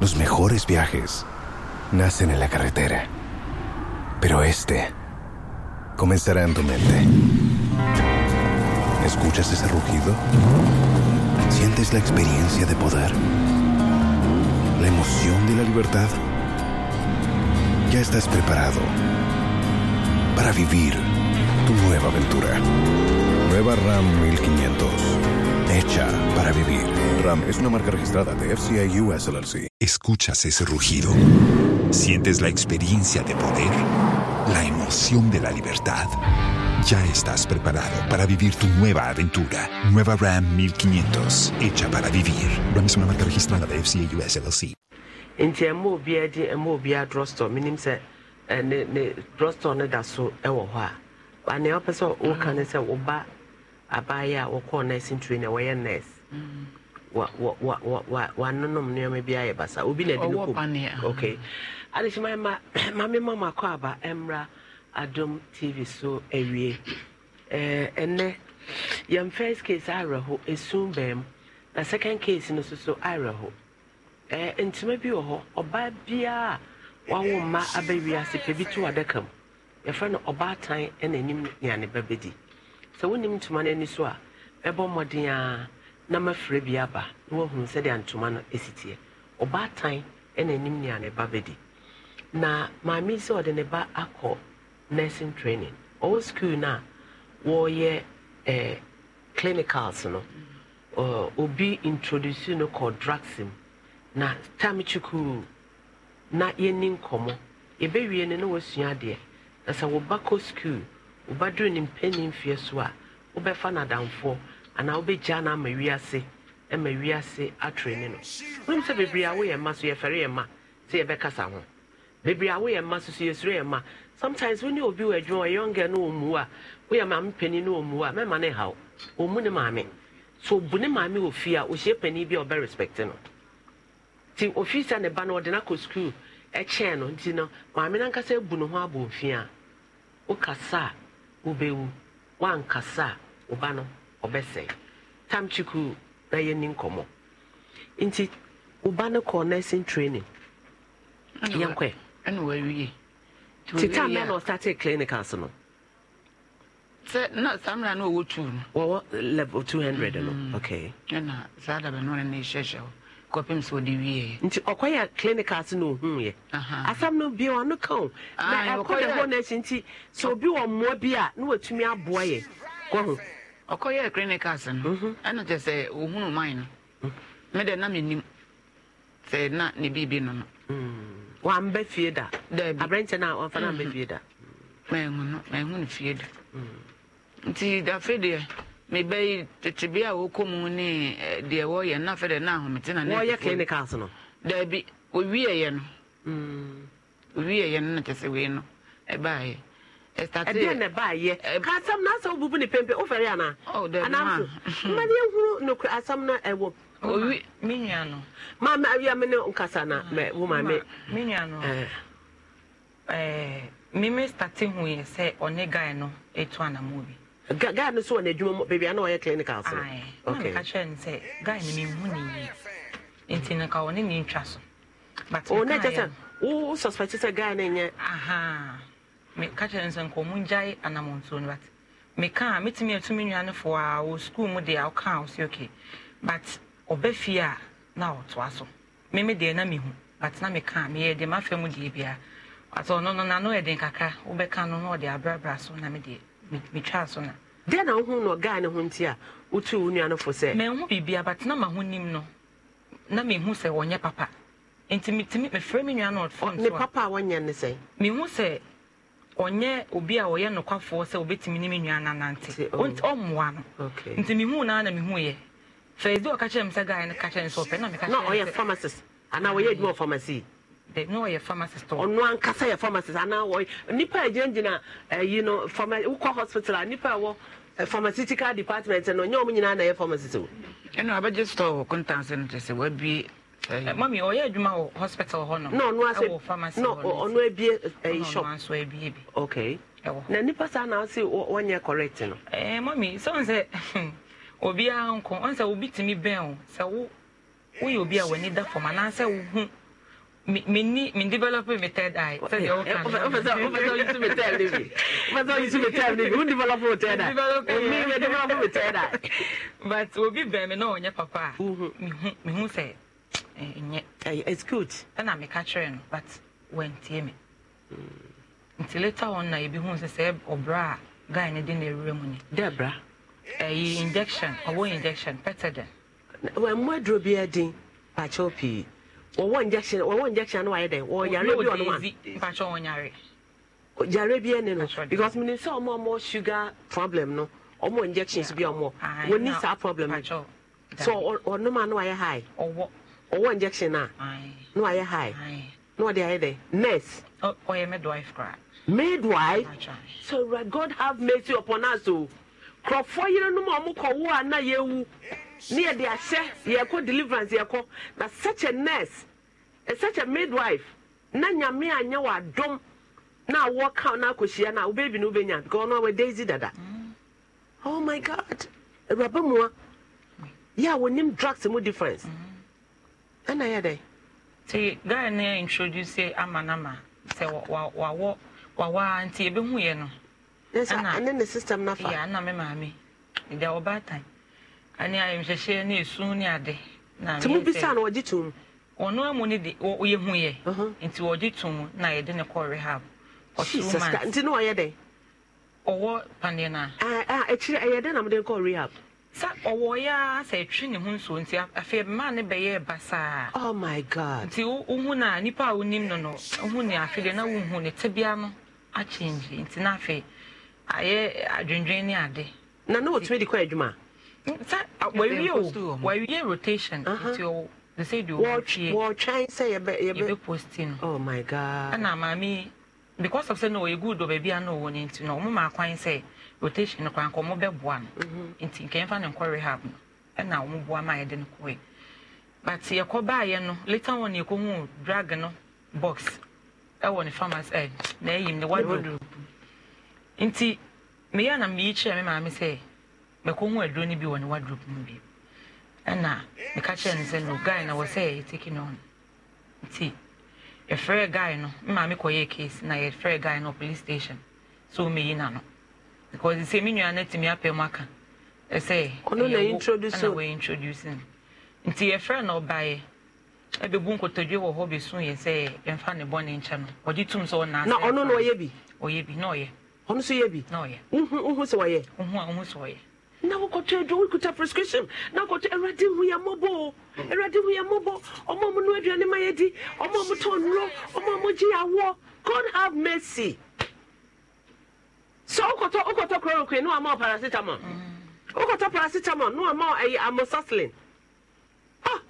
Los mejores viajes nacen en la carretera, pero este comenzará en tu mente. ¿Escuchas ese rugido? ¿Sientes la experiencia de poder? ¿La emoción de la libertad? Ya estás preparado para vivir tu nueva aventura. Nueva RAM 1500. Hecha para vivir. RAM es una marca registrada de FCI US Escuchas ese rugido. Sientes la experiencia de poder, la emoción de la libertad. Ya estás preparado para vivir tu nueva aventura. Nueva Ram 1500, hecha para vivir. Ram es una marca registrada de FCA US LLC. a wanonom nneɛma bi ayɛ basa obi na ɛde no kɔm ok adehyema ma mame ma makɔ aba mmra adom tv so awie eh, ɛnɛ yɛn first case awerɛho esum bɛn na second case no soso awerɛho ɛɛ eh, ntoma bi wɔ hɔ ɔbaa biara wawo mma abɛwi ase pɛ bi to adaka mu yɛfrɛ no ɔbaatan ɛna anim nea ne sɛ wonim ntoma no ani so a ɛbɔ mmɔden ara na mafrɛ bi aba na wahunu sɛdeɛ ntoma no ɛsiteɛ ɔbaatan ɛna anim nea ne ba bɛdi na maame sɛ ɔde ne ba akɔ nursing training ɔwɔ school no a wɔreyɛ eh, clinicals no uh, obi introduce no kɔ drugs na tam kyikuu na yɛni nkɔmmɔ yɛbɛwie no na wasua adeɛ na sɛ woba kɔ school wobaduru ne mpɛni so a wobɛfa no ana anaa wobɛgya no ama wiase ma wiase atrene no wonim sɛ bebree a woyɛ ma so yɛfɛre yɛ ma sɛ yɛbɛkasa ho bebree a woyɛ ma so so yɛsuro yɛ ma sometimes wone obi wɔ adwuma ɔyɛ ɔngɛ no ɔmmu a woyɛ maame panin no ɔmmu a mɛma ne haw ɔmmu ne maame so obu ne maame wɔ fie a ɔhyia panin bi a ɔbɛ respect no nti ofi sɛ ne ba no ɔde no akɔ sukuu ɛkyɛn no nti no maame no ankasa abu ne ho abɔ mfi a wokasa a wobɛwu woankasa a wo ba no ɔbɛsɛe tam chiku na yɛni nkɔmmɔ nti woba no kɔɔ nursing training yɛnkɔɛ tita mɛ na ɔstate clinicals no sɛ na saa mmerɛ na ɔwɔ two no wɔwɔ level two hundred no mm-hmm. okay ɛna saa dabɛ no ne hyɛhyɛ hɔ kɔpem sɛ ɔde wieɛ nti ɔkɔyɛ clinicals na ɔhuuɛ asɛm no bia ɔno ka o na ah, ɛkɔ ne hɔ no akyi nti sɛ obi wɔ mmoa bi a na watumi aboa yɛ kɔ ho ɔkɔyɛ clinicals no ɛno kyɛ sɛ ɔhunu man no medɛ mhm. na menim sɛ na ne biribi no no mhm. wambɛ fie da aberɛnkyɛ no a wamfa no ambɛ mhm. fie da mahu no mahu no fie da nti dafe deɛ mebɛyi tetebe a wɔkɔ mu ne deɛ wɔyɛ na afɛ deɛ na ahomete na wɔyɛ clinicals no daabi ɔwieɛ no ɔwieɛ no na kyɛ sɛ wei no ɛbaeɛ ɛdeɛ na ɛba ka asɛm no asɛ wobubu ne pempe wofɛre anaa oh, anamso ma ne ɛhuru nokr asɛm no ɛwɔ owi ma awia nkasa na wo ma me me nua ho yɛ sɛ ɔne etu bi guy no so wɔ n'adwuma mu beebi a na ɔyɛ clinical so okay na kyerɛ no sɛ guy no mehu ne yie nti ɔne ne ntwa so but oh, wo suspect sɛ guy no nyɛ meka kyerɛ sɛ nkɔ mu ngyae anammɔntuo no but meka a metumi atumi nnuanefoɔ a wɔ sukuu mu deɛ a woka a okay but ɔba fie a na ɔtoa so meme deɛ na mehu but na meka meyɛ deɛ mafa mu deɛ biara ɔtɔ ɔno no nano kakra wobɛka no na ɔde abrabra so na medeɛ metwaa so na na wohu no ɔgaa ne ho nti a wotu wo nuanofo sɛ mehu biribia but na maho nim no na mehu sɛ ɔnyɛ papa nti mefrɛ papa ɔnyɛ obi a ɔyɛ nokwafoɔ sɛ obɛtumi ne me nua nanante um, ɔmmoa no nti mehu naa na mehu yɛ first day ɔka kyerɛ me sɛ guy no ka kyerɛ ne sɛ ɔpɛ na meka kyerɛ pharmacist anaa ɔyɛ adwuma pharmacy na ɔyɛ pharmacist ɔno ankasa yɛ pharmacist anaa ɔyɛ nipa a gyinagyina ayi eh, no wokɔ hospital a nipa a wɔ eh, pharmaceutical department no ɔnyɛ ɔmo nyinaa na ɛyɛ pharmacist o ɛna abɛgye store wɔ contanse no kyɛ sɛ wabue Eh, mami ɔyɛ adwuma wɔ hospital hɔ nom ɛwɔ pharmacy hɔ nom ɔno abie ɛyi eh, eh, shop ɔno nso abie bi okay ɛwɔ na nipa saa na ɔsi wɔnyɛ correct no ɛɛ mami sɔn sɛ obiara nko ɔn sɛ obi tumi bɛn o sɛ wo woyɛ obi a w'ani da fam anaasɛ wo hu mini mi develop mi third eye. sẹ́yìn ọ̀kan náà. ọ̀fẹ̀sẹ̀ ọ̀fẹ̀sẹ̀ ọ̀yìn tún mi third eye bi ọ̀fẹ̀sẹ̀ ọ̀yìn tún mi third eye bi wọ́n develop mi third eye. mi mi develop mi third eye. but obi bẹ̀rẹ̀ mi náà ọ̀nyẹ́ papa mi hu sẹ́ Eh, it's good ɛna meka kyerɛ no but wantie me nti later on na ebi hu sɛ sɛ ɔbra a guy ne de na ewura mu ni. dɛ ɛyi eh, injection ɔwɔ injection pɛtɛdɛn. wɔn mu aduro bi ɛdin pàtɛw pii wɔwɔ injection wɔwɔ injection no wayɛ dɛ wɔwɔ yare bi ɔno wa. pàtɛw wɔn yare. yare bi ɛni no because mi ni sɛ ɔmo ɔmo sugar problem no ɔmo injections bi ɔmo wɔn ni saa problem no so ɔnum no wayɛ high. ɔwɔ. ɔwɔ injection a na wayɛ high na ɔde ayɛ dɛ nurse. ɔyɛ oh, oh, midwife kora. midwife so god have mercy upon us oh. o kurɔfoɔ yerenom a ɔmo kɔwo a na yɛwu ne yɛde ahyɛ yɛkɔ deliverance yɛkɔ na such a nurse eh, such a midwife na nyame anyɛ wɔ adom na awɔ ka na akɔhyia na wo baby no wobɛnya because ɔno awɔ daisy dada mm. oh my god awuraba mua mm. yɛ a wɔnim drugs mu difference mm -hmm. ɛna yɛ dɛ nti ghana na introduce nama sɛ wawɔ wawa nti ebihu yɛ no ɛna ne system nafa yɛ ana me maame ɛdi a ɔbaatan ɛne ayɛmhyɛhyɛ ne esu ne ade na mi sɛ tumu bisa na ɔgye tum ɔno amu ne de ɔyɛ hu yɛ uh-huh. nti ɔgye tum na yɛde ne kɔ rehab ɔtu man nti ne ɔyɛ dɛ ɔwɔ paneɛ na a ah, ah, akyire ɛyɛ dɛ na mo de kɔ rehab. sa ọwọ ya sa etwi ne ho nsuo nti afei mmaa ne bɛyɛ basaa. oh my god. nti ohun na nipa a onim no no ohun ne afei de na ohun ne tibia no akyinji nti na afei ayɛ adwendwen ne ade. na na wotumi de kɔ adwuma. sa wawie o wawie rotation nti o de sɛ de o wɔtwe wɔtwɛn sɛ yɛbɛ yɛbɛ yɛbɛ posti no. oh my god. ɛna maami because of say na ɔyɛ good wɔ baabi a na ɔwɔ ne nti na ɔmo maa kwan sɛ. rotation no kwan kɔmɔ bɛboa no mhm. nti nkɛmfa ne nkɔ rehab no ɛna wɔn boa ma yɛde no kɔɛ but yɛkɔ baayɛ no later on yɛkɔhu drag no box ɛwɔ ne farmers ɛ na ɛyim ne wardrobe nti meyɛ na meyi kyerɛ me maame sɛ mɛkɔhu aduro no bi wɔ ne wardrobe mu bi ɛna meka kyerɛ no sɛ no guy na wɔ sɛ yɛteki no on nti yɛfrɛ guy no me kɔ yɛ case na yɛfrɛ guy no police station so meyi na no because sɛ same nua no atumi apɛ mu say ɛsɛ ɛyɛwo introduce no nti yɛfrɛ no ɔbaeɛ ɛbɛbu nkotodwe wɔ hɔ bɛsuuyɛ sɛ yɛmfa ne bɔne nkyɛ no ɔgye tum oh, sɛ ɔnana na ɔyɛ bi ɔyɛ bi na ɔyɛ ɔno so bi na ɔyɛ wohu sɛ ɔyɛ wohu a na wokɔtɔ adwo wokuta prescription na wokɔtɔ awurade hu yɛ hu no oh, ma oh, god have mercy sɛ wokɔtɔ wokɔtɔ chloroquine ne wama paracetamol wokɔtɔ mm. paracetamol ne wama ɛyɛ e, amoxicillin oh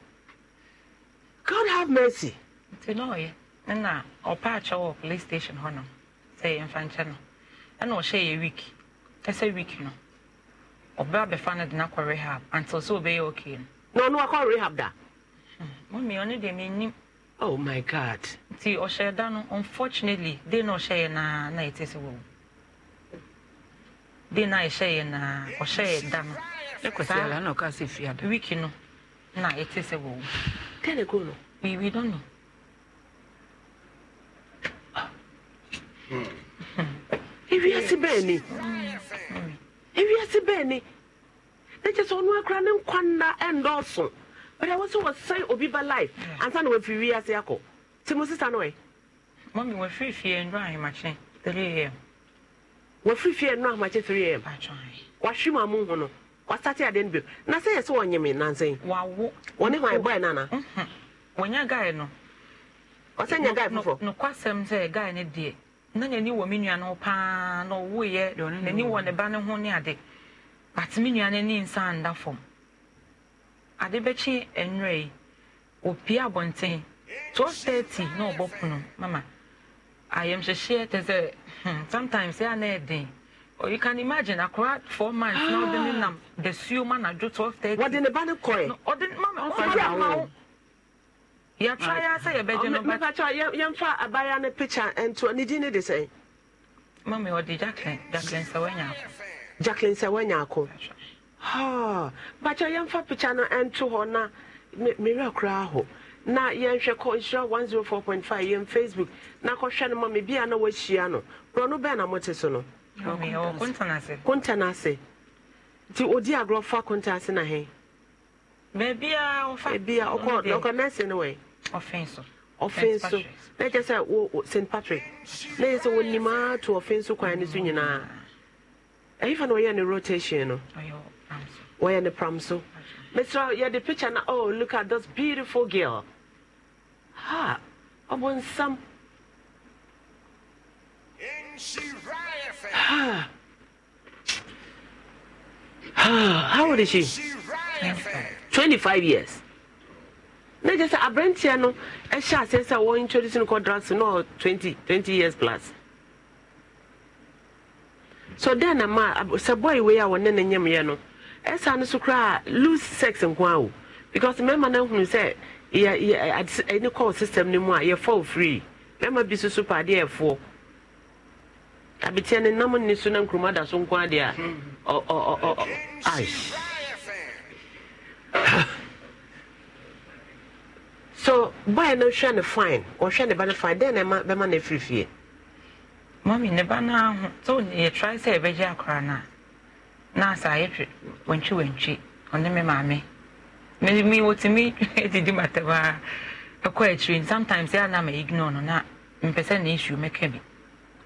god have mercy nti na ɔyɛ ɛna ɔpa akyɛ wɔ police station hɔ no sɛ yɛmfa nkyɛ no ɛna ɔhyɛ yɛ week ɛsɛ week no ɔbɛ abɛfa no de no akɔ rehab until sɛ ɔbɛyɛ okay no na ɔno wakɔ rehab da mami ɔno deɛ menim oh my god nti ɔhyɛ da no unfortunately de na ɔhyɛeɛ naa na yɛte sɛ wɔwu de na ɛhyɛeɛ naa ɔhyɛeɛ da no ɛkɔsiala na wiki no na ɛte sɛ wɔwo tɛne ko we don't know hmm. ewiase bɛɛ ni ewiase bɛɛ ni na kyɛ sɛ ɔno akora ne nkwa nna ɛndɔɔso bɛdɛ wɔ sɛ wɔsɛn obi ba life ansa na wafiri wiase akɔ nti mo sisa no ɛ mɔmi wafiri fie nnuro ahemakye 3 am wafiri fie no amakye 3 am wahwe ma mu ho no wasate ade no bio na sɛ yɛ sɛ wɔnyeme nansɛn wɔne hwan bɔɛ n'ana. ana wɔnya gae no ɔsɛ nya gae foforɔ nokwasɛm sɛ gae no deɛ na n'ani wɔ me nua no paa na ɔwoeɛ n'ani wɔ ne ba no ho ne ade but me nua no ani nsa nda fam ade bɛkye nwerɛ yi wɔpie abɔnten 1230 na ɔbɔ pono mama I am ayamhyehyeɛ te say, sometimes ɛa na ɛden or you can imagine a akora four months now. The ɔde ne nam um, the suo ma na do twelve thirty. wɔde ne ba ne kɔɛ. no ɔde mama ɔfa yà ma wo. yàtúrà yà sẹ yẹ bẹ jẹ nọmba. mẹfà tí wà yẹn fa abaya ne picture ntu ni di ne de sẹ. mami ɔde jacqueline jacqueline sɛwɛnya jacqueline sɛwɛnya akɔ. Ah, but bàtà yẹn fa picture no ntu hɔ na mẹwura kura ahɔ. na yɛnhwɛ kɔ nhyira 104.5 yɛn facebook na kɔhwɛ no ma me bia na wahyia no borɔ no bɛn na mote so no kontana ase nti odi agorɔ fa kontana ase na hɛn baabia ɔkɔ ɔkɔ nɛɛse no wɛ ɔfɛn so na kyɛ sɛ wo st patrick na yɛ sɛ wɔnimaa to ɔfɛn so kwan no so nyinaa ɛyifa na ɔyɛ ne rotation no wɔyɛ ne pram so Mr. Yeah, the picture now. Oh, look at this beautiful girl. Ha! I want some. Ha! How old is she? 25 years. na kyerɛ sɛ aberanteɛ no ɛhyɛ aseɛ sɛ wɔ introduce no quadrants no 20 20 years plus so dɛn na ma sɛ boy wei a wɔne ne nyɛmeɛ no ɛsa no so koraa loose sex nko a o because mmarima no ahunu sɛ yɛ yɛ ɛne call system no mu a fall free mmarima bi soso paadeɛ ɛfoɔ abetia ne nam ne so na nkuruma da so nko adeɛ a ɔ ɔ ɔ ɔ ai so boy no hwɛ ne fine ɔhwɛ ne ba no fine dɛn na ɛma bɛma ne firifie. mɔmi ne ba no aho so yɛ try sɛ yɛbɛgye akora no Na nurse ayɛtwe wantwi wantwi ɔne me maame me me wotumi didi matɛm a ɛkɔ akyiri sometimes ɛa na ma ignore no na mpɛ sɛ na issue mɛka bi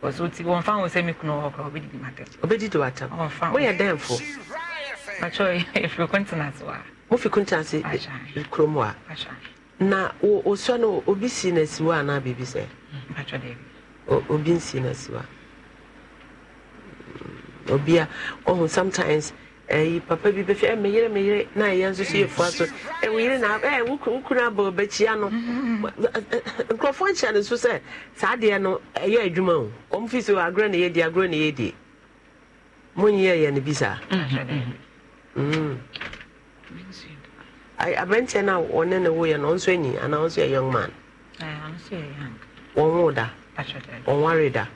because woti wɔmfa wo sɛ me kunu wɔ kora wobɛdidi matɛm wobɛdidi watɛm wɔmfa woyɛ dɛnfo makyɛ ɛfiri continent wɔ a wofi continent eh, kurom a na wosua no obi na no asiwa anaa biribi sɛ mm, obi na no asiwa obi a ɔhu oh, sometimes ɛyi eh, papa bi bɛfi ɛ eh, meyere meyere na ɛyɛ nso so yɛ fua so ɛ eh, woyere na ɛ wokunu abɔ bɛkyia no mm-hmm. nkurɔfoɔ nkyɛn no so sɛ saa adeɛ no ɛyɛ adwuma o wɔn fi so agorɔ na di agorɔ na di. mo nyɛ yɛ no bi saa mm-hmm. mm. aberanteɛ na a ɔne ne woyɛ no ɔnso anyi anaa ɔnso yɛ young man wɔn wo da wɔn ware da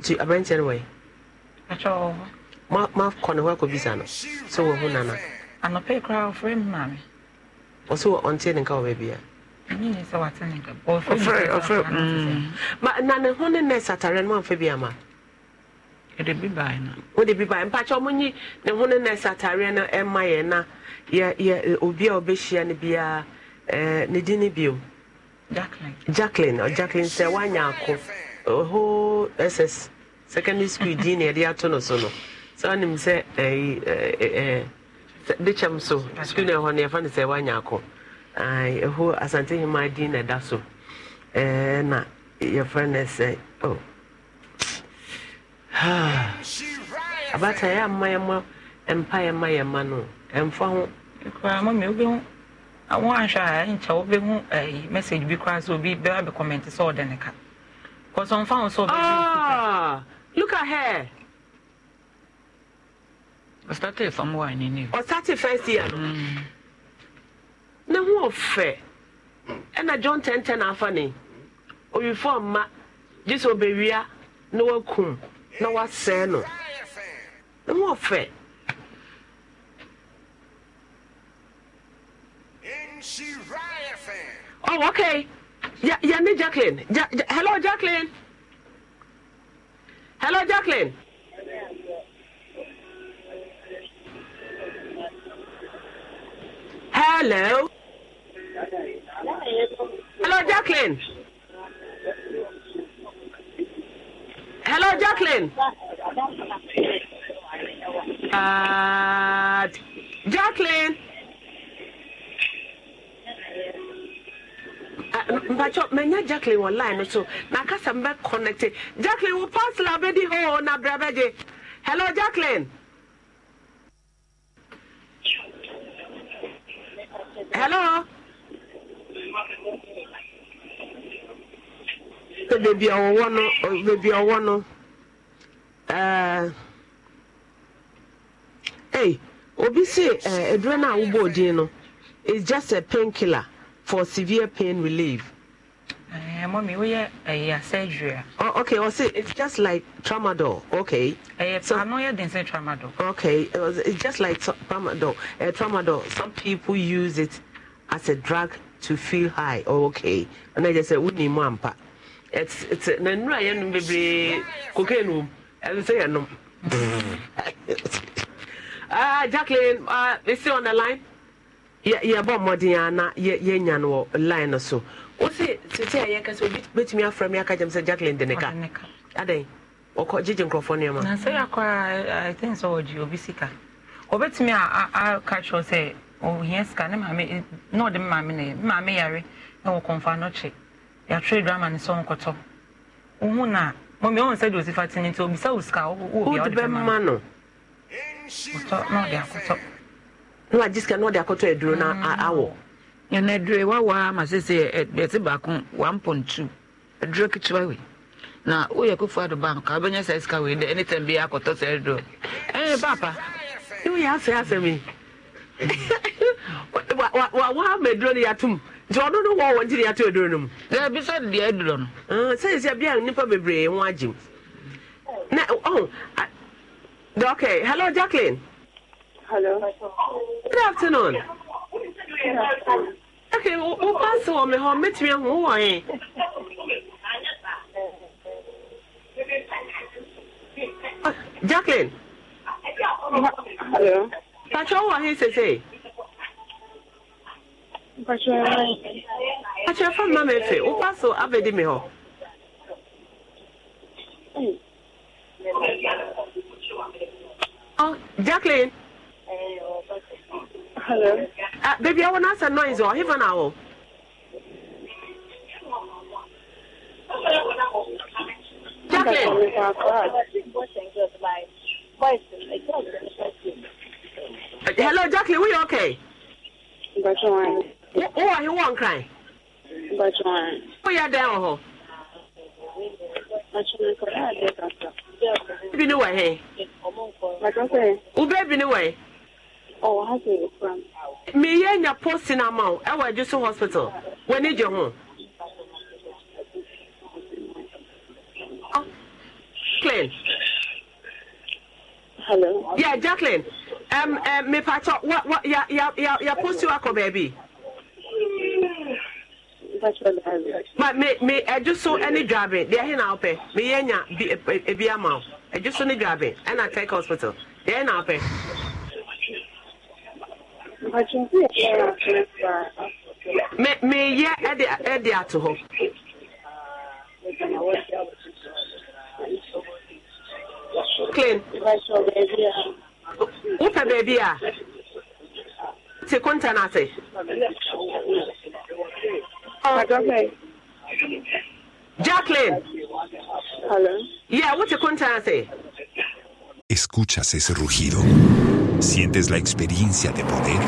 nti aberanteɛ no wɔyɛ makɔ hɔ akɔ no sɛ wɔhu nana anɔpɛ koraa ɔfrɛ m maame ɔsɛ ɔnteɛ ne nka wɔ baabia na ho ne nɛs atareɛ no mamfa bi ama wode bi bae mpakyɛ ɔmonyi ne ho ne atareɛ no ɛma yɛ na obi a ɔbɛhyia no biaa eh, ne din ne bio jacklin jacklin sɛ woanya ako ss secondary school din na yɛde ato no so no saa nim eh, eh, eh, sɛ de kyɛm so skul no ɛhɔ no yɛfa no sɛ woanya akɔ ɛho asantehema din na ɛda so na yɛfrɛ no sɛ oh. abata yɛ ama yɛma mpa yɛma yɛma no ɛmfa ho mami wobɛhu wo anhwɛ a message bi koraa obi sɛ ɔde ne ka ho sɛ Look at her. I started from where I knew. I started first year. Mm. Now who fair? And I John ten ten half an Or oh, you form ma This will be real. no one cool. No one say no. No more fair? Oh, okay. Yeah, yeah, Jacqueline. Ja, ja, hello, Jacqueline. Hello, Jacqueline. Hello. Hello, Jacqueline. Hello, Jacqueline. Uh, Jacqueline. mpachọ menya jacklin wɔ line so na kasa mbɛ connect jacklin wo pasla bɛdi hɔ na brɛ bɛgye hello jacklin hello beebi a ɔwɔ no beebi a ɔwɔ no ɛɛ ee obi si eh, eduro na awobɔ odin no it's just a painkiller. for severe pain relief. Uh, mommy, we are uh, surgery. Oh, okay. Well, oh, see, it's just like tramadol. Okay. Uh, so, I'm not say tramadol. Okay. It was, it's just like tramadol. Uh, tramadol. Some people use it as a drug to feel high. Oh, okay. And I just say, "Wouldn't mampa." It's it's. Then right, you not baby, cocaine. And say, know." Ah, Jacqueline, uh, is she on the line? yɛbɔ mmɔden a na yɛnya no wɔ line no so wo tete a yɛka sɛ obɛtumi me aka gyam sɛ jacklin de ne ka adɛn ɔkɔ gyegye na yɛakɔ a i think sɛ obi sika ɔbɛtumi aka kyerɛ sɛ ɔhia sika ne maame na ɔde na yɛ maame yare na wɔ no kye yɛatwerɛ drama ne sɛ wohu mɔmi ɔhu sɛ de tene nti obisa wo sika bɛma na na wagye sika na ɔde akɔtɔ aduro no awɔ ɛna aduro wawa ama sɛ sɛ ɛte baako 1.2 aduro ketewa wei na woyɛ kofu ado bank a wobɛnya saa sika wei dɛ anytime bi akɔtɔ saa aduro ɛɛ papa woyɛ asɛ asɛm yi wawa ama aduro no yɛatom nti ɔno no wɔ wɔ nti ne yɛato aduro no mu bi sɛ deɛ aduro no sɛyɛsia bia nnipa bebree ho agyem na oh, I, oh, okay ah, hello jacqueline Hello. Good afternoon. Good afternoon. Okay, wo pass wɔ me hɔ mɛtumi ahu wo wɔ yɛn. Jacqueline. Hello. Pàtó wɔ he sese. Pàtó ɛfɔ mma mi efe wo pass wɔ abedi mi hɔ. Hmm. Oh, Jacqueline. Hello. Uh, baby, I want to ask a noise. Or oh. even now. Oh. Jacqueline. Hello, Jacqueline. We okay? But you want. Who are you one crying? But you want. Who are you oh? down? Baby, no way. Hey. What you say? Who baby, no way? meyɛ nya postin ama wo ɛwɔ agye so hospital w'ani gye ho jacqueline hello yeah jacqueline um, um, mepatɔ wa wa ya ya ya ya posti wakɔ baabi ma me me ɛgye so ɛne dwabe deɛ ɛhe na wopɛ meyɛ nya bi ebi ama wo ɛgye so ne dwabe ɛna tech hospital deɛ ɛhe na wopɛ. Me me ya ɛde ato hɔ clean wopɛ baabi a te konta no ase ah. Jacqueline. Hello. Yeah, what's conta contact? Escuchas ese rugido. Sientes la experiencia de poder,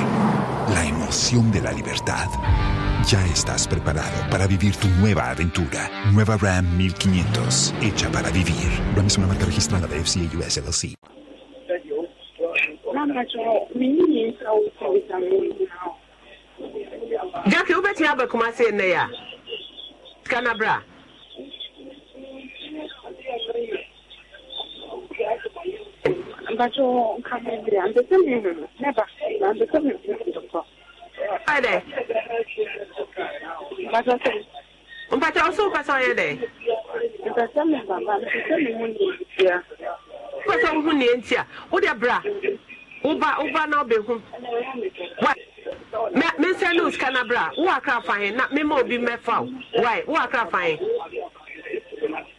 la emoción de la libertad. Ya estás preparado para vivir tu nueva aventura. Nueva Ram 1500, hecha para vivir. Ram es una marca registrada de FCA US LLC. mpatsɛ nka mi bi a mbese mi nunu ne ba na mbese mi nunu dɔkɔ. ɔyɛ dɛ. mpatsɛ sɛ. mpatsɛ ɔsɛ mpatsɛ ɔyɛ dɛ. mpatsɛ mi baba mpatsɛ mi mu nie ntia. mpatsɛ mi mu nie ntia o de bra woba woba na ɔbɛ hu wa mɛ mɛ nsɛn ne o sika na bra wo akra fa yɛn na mɛ ma obi mɛ fa o wa yi wo akra fa yɛn.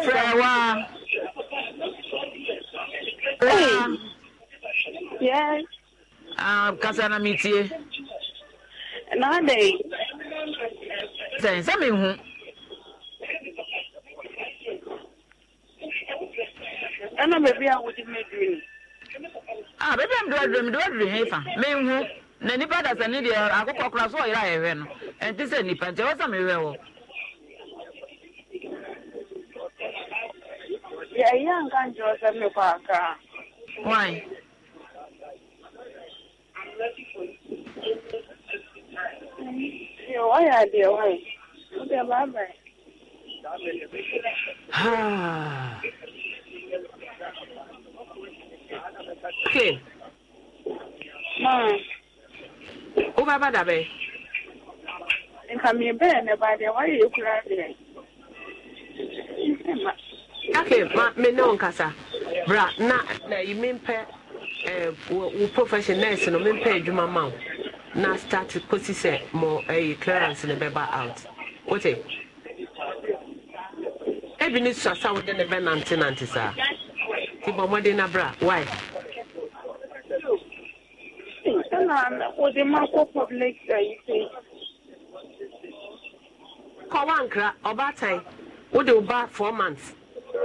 fẹ́ wá. Yes. Um, kasa na mi tie. Nade. Sẹ́yìn sẹ́mi hu. Ẹna bèbí a wòdi mẹ́dìrì ni. Ah bèbí a mi dúró dúró mi dúró dúró hẹ́fà mi hu. Na nipa dasa ni deɛ akokɔ kura so ɔyere a yɛhwɛ no. Ɛnti sɛ nipa nti ɔwɔ sɛ mi hwɛ yɛyɛ anka nkyerɛ sɛ mekɔ aka why wɔyɛ adeɛ wae wode baabae ke wobɛba da bɛ nka mebɛɛ ne okay ma me ne nkasa bra na na yi pe eh, wo profession nurse no mempɛ adwuma ma wo na start kosi se mo eh, clearance ne bɛba out wote ebi ne sasa wo de ne bɛnante nante saa nti bɔ mmɔden na bra why na wɔde ma kɔ public service. kɔwa nkra ɔbaatan wode wo ba four months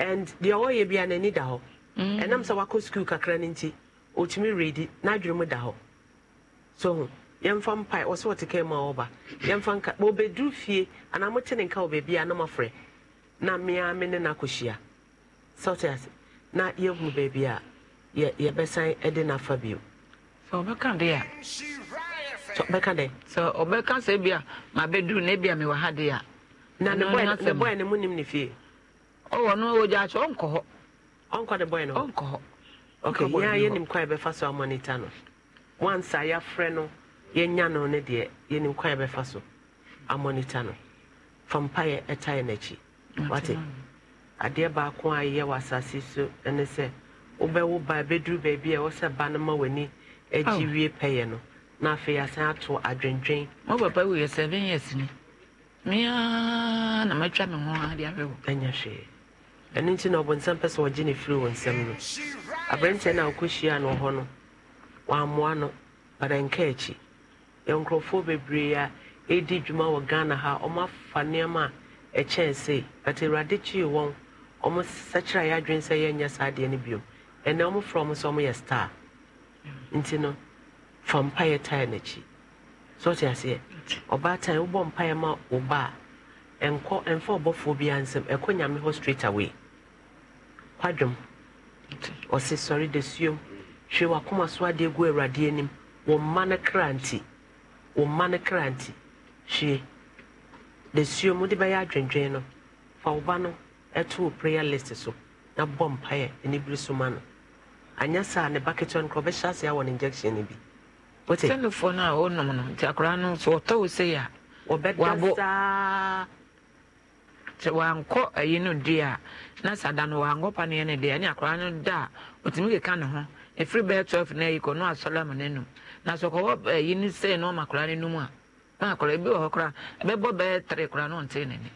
and deɛ ɔyɛ bia n'ani da hɔ mm. ɛnam sɛ wakɔ sukuu kakra no nti ɔtumi redi n'adwene mu da hɔ so ho yɛmfa mpae ɔsɛ ɔte ka ma ɔba yɛmfa nka ɔbɛduru fie anaa mote ne nka wɔ baabi na mafrɛ na mmea me ne no akɔhyia sɛ ase na yɛhu baabi a yɛbɛsan de no afa bio sɛ ɔbɛka de a bɛka sɛ ɔbɛka sɛ bi mabɛduru na bi a mewɔ ha de a na ne bɔɛ ne mu nim ne fie ɔwɔ no ɔwɔ gyaakye ɔnkɔ hɔ ɔnkɔ de bɔyɛ no ɔnkɔ hɔ okay yɛn a yɛnim kwan yɛbɛfa so amɔnita no wansi a yɛafrɛ no yɛnya no ne deɛ yɛnim kwan yɛbɛfa so amɔnita no fa mpaeɛ ɛta yɛ n'akyi wate adeɛ baako a yɛ wɔ asase so ne sɛ wobɛwo ba bɛduru beebi a ɛwɔ sɛ ba no ma w'ani agye wie pɛyɛ no na afei asan ato adwendwen mo papa wuyɛ seven years ni mmea na matwa me ho adeɛ ahwɛ wo ɛnyɛ hwee ɛno nti na ɔbɔnsam pɛ sɛ ɔgye ne firi wɔ nsɛm no aberanteɛ no a wɔkɔhyia no hɔ no wɔammoa no bada nka akyi yɛ nkurɔfoɔ bebree a ɛdi dwuma wɔ ghana ha ɔmo afa nneɛma a ɛkyɛn sei but awurade kyii wɔn ɔmo sɛkyerɛ a yɛadwene sɛ yɛnyɛ saa adeɛ no biom ɛnɛ ɔmo frɛ sɛ ɔmo star nti no fa mpaeɛ tae n'akyi so ɔte aseɛ ɔbaatan wobɔ mpaeɛ ma wo ba a ɛnkɔ ɛmfa ɔbɔfoɔ bi ansɛm ɛkɔ nyame hɔ straight away kwadwom ɔse sɔre da suom hwɛ wakoma so adeɛ gu awurade anim wɔ mma no kra nti wɔ mma no kra nti hwie da suom bɛyɛ adwendwen no fa wo ba no ɛto wo prayer list so na bɔ mpaeɛ ne biri so ma no anyɛ saa ne baketewa no korɔ ɔbɛhyɛ aseɛ wɔ ne injection no bi wote sɛnofoɔ no a wɔnom no nti akora no sɛ ɔtɔ wo sei a wɔbɛda saa sɛ wankɔ ayi no deɛ a na sɛ ada no wankɔ paneɛ no di ɛne akwaraa no da a ɔtumi keka ne ho ɛfiri bɛɛ 12 no ayi kɔ no asɔre ama no anum na sɛ ɔkɔwɔ ayi no sɛ na ɔma akwaraa no anum a na akwaraa ebi wɔ hɔ koraa ɛbɛbɔ bɛɛ tere koraa na ɔnte n'ani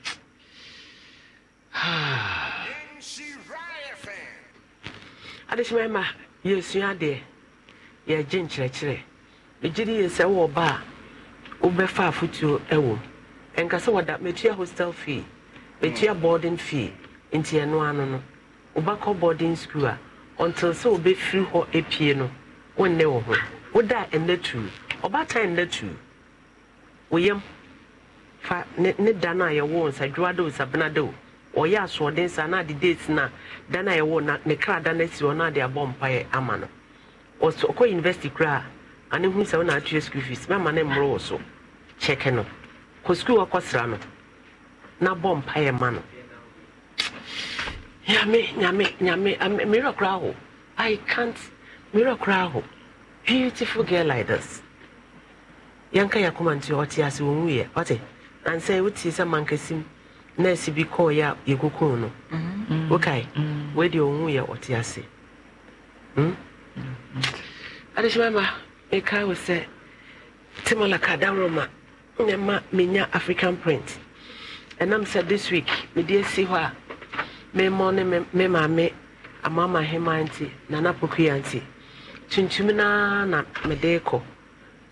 adehyemɛ ma yɛsua adeɛ yɛgye nkyerɛkyerɛ ɛgye de yɛ sɛ wɔ ba a wobɛfa afotuo ɛwɔ ɛnka sɛ wɔda matua hostel fee bɛtua boarding fee nti ɛno ano no boarding school a ɔntil sɛ wobɛfiri hɔ epie no wonne wɔ ho woda ɛnna tu ɔbaatan ɛnna tu woyam fa ne ne da a yɛwɔ ɔyɛ asoɔden na ade date na dan a yɛwɔ na ne kra da hɔ na abɔ ama no ɔkɔ university ane atua fees mɛma ne mmoro wɔ so kyɛkɛ no kɔ school no na bɔ mpaeɛ ma no nyame nyame nyame miracle aho i can't miracle aho beautiful girl like this yɛnka yɛ akoma nti ɔte ase wɔnwuiɛ ɔte ansɛ wotie sɛ mankasim nurse bi kɔɔyɛ a yɛkokoo no wokae mm-hmm. mm-hmm. wede ɔnwuiɛ ɔte hmm? ase mm-hmm. adehyemama meka wo sɛ timolaka daworoma ne ma menya african print I'm said this week mede me hɔ a me ne me maame amama hema nti nana pokua nti tuntum na mede kɔ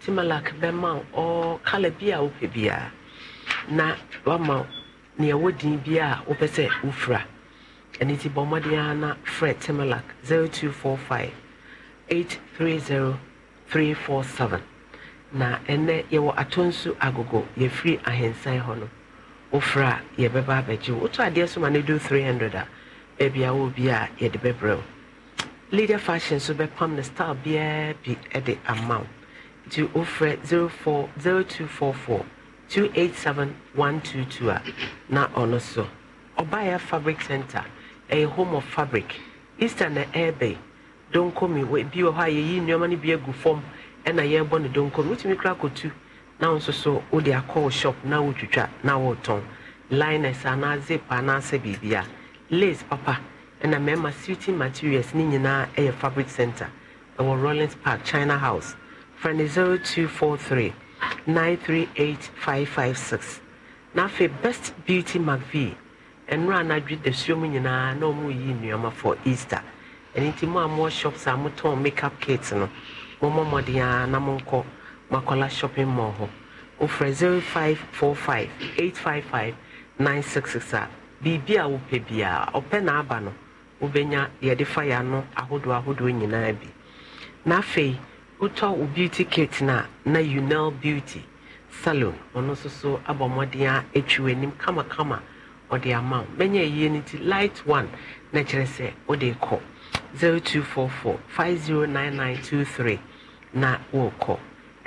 timalak bɛma wo kala bi a wopɛ na wama nea ɛwɔ din bi a ufra sɛ wofira Fred nti timalak 0245 830 347 na ɛnɛ yɛwɔ atɔ agogo yɛfiri free hɔ no wofra a yɛbɛba abɛgye wo wotɔ adeɛ so ma no do 300 a baabi a wɔ bi a yɛde bɛbrɛ wo leader fashion so bɛpam no style biara bi de ama wo nti wofrɛ 0244 a na ɔno so ɔbaeɛ fabric center ɛyɛ home of fabric easter na ɛɛbɛi donkomi bi wɔ hɔ a yɛyi nneɔma no bi agu fam ɛna yɛrebɔ no donkomi wotumi kora kɔtu 0244 na wo nso so wode akɔ wo shop na wotwitwa na wotɔn liners anaa zip anaasɛ biribi a lace papa ɛna mmarima suiting materials ne nyinaa ɛyɛ fabric center ɛwɔ rollins park china house frɛ ne 0243 938556 na afei best beauty mcv ɛnora anadwe dasuo mu nyinaa na ɔmo yi nnuama for easter ɛno nti mo a mo shops a motɔn makeup kit no mommɔ mmɔden a na monkɔ Makola Shopping Mall hɔ ofrɛ 0545 855 966 a biribi a wopɛ biara ɔpɛ na aba no wobɛnya yɛde fa ya ano ahodoɔ ahodoɔ nyinaa bi na afei wotɔ wo beauty kit na na unel beauty salon ɔno nso so abɔ mmɔden a atwi w'anim kamakama ɔde ama wo bɛnya ɛyie no nti light one na kyerɛ sɛ wode kɔ 0244 509923 na wɔrekɔ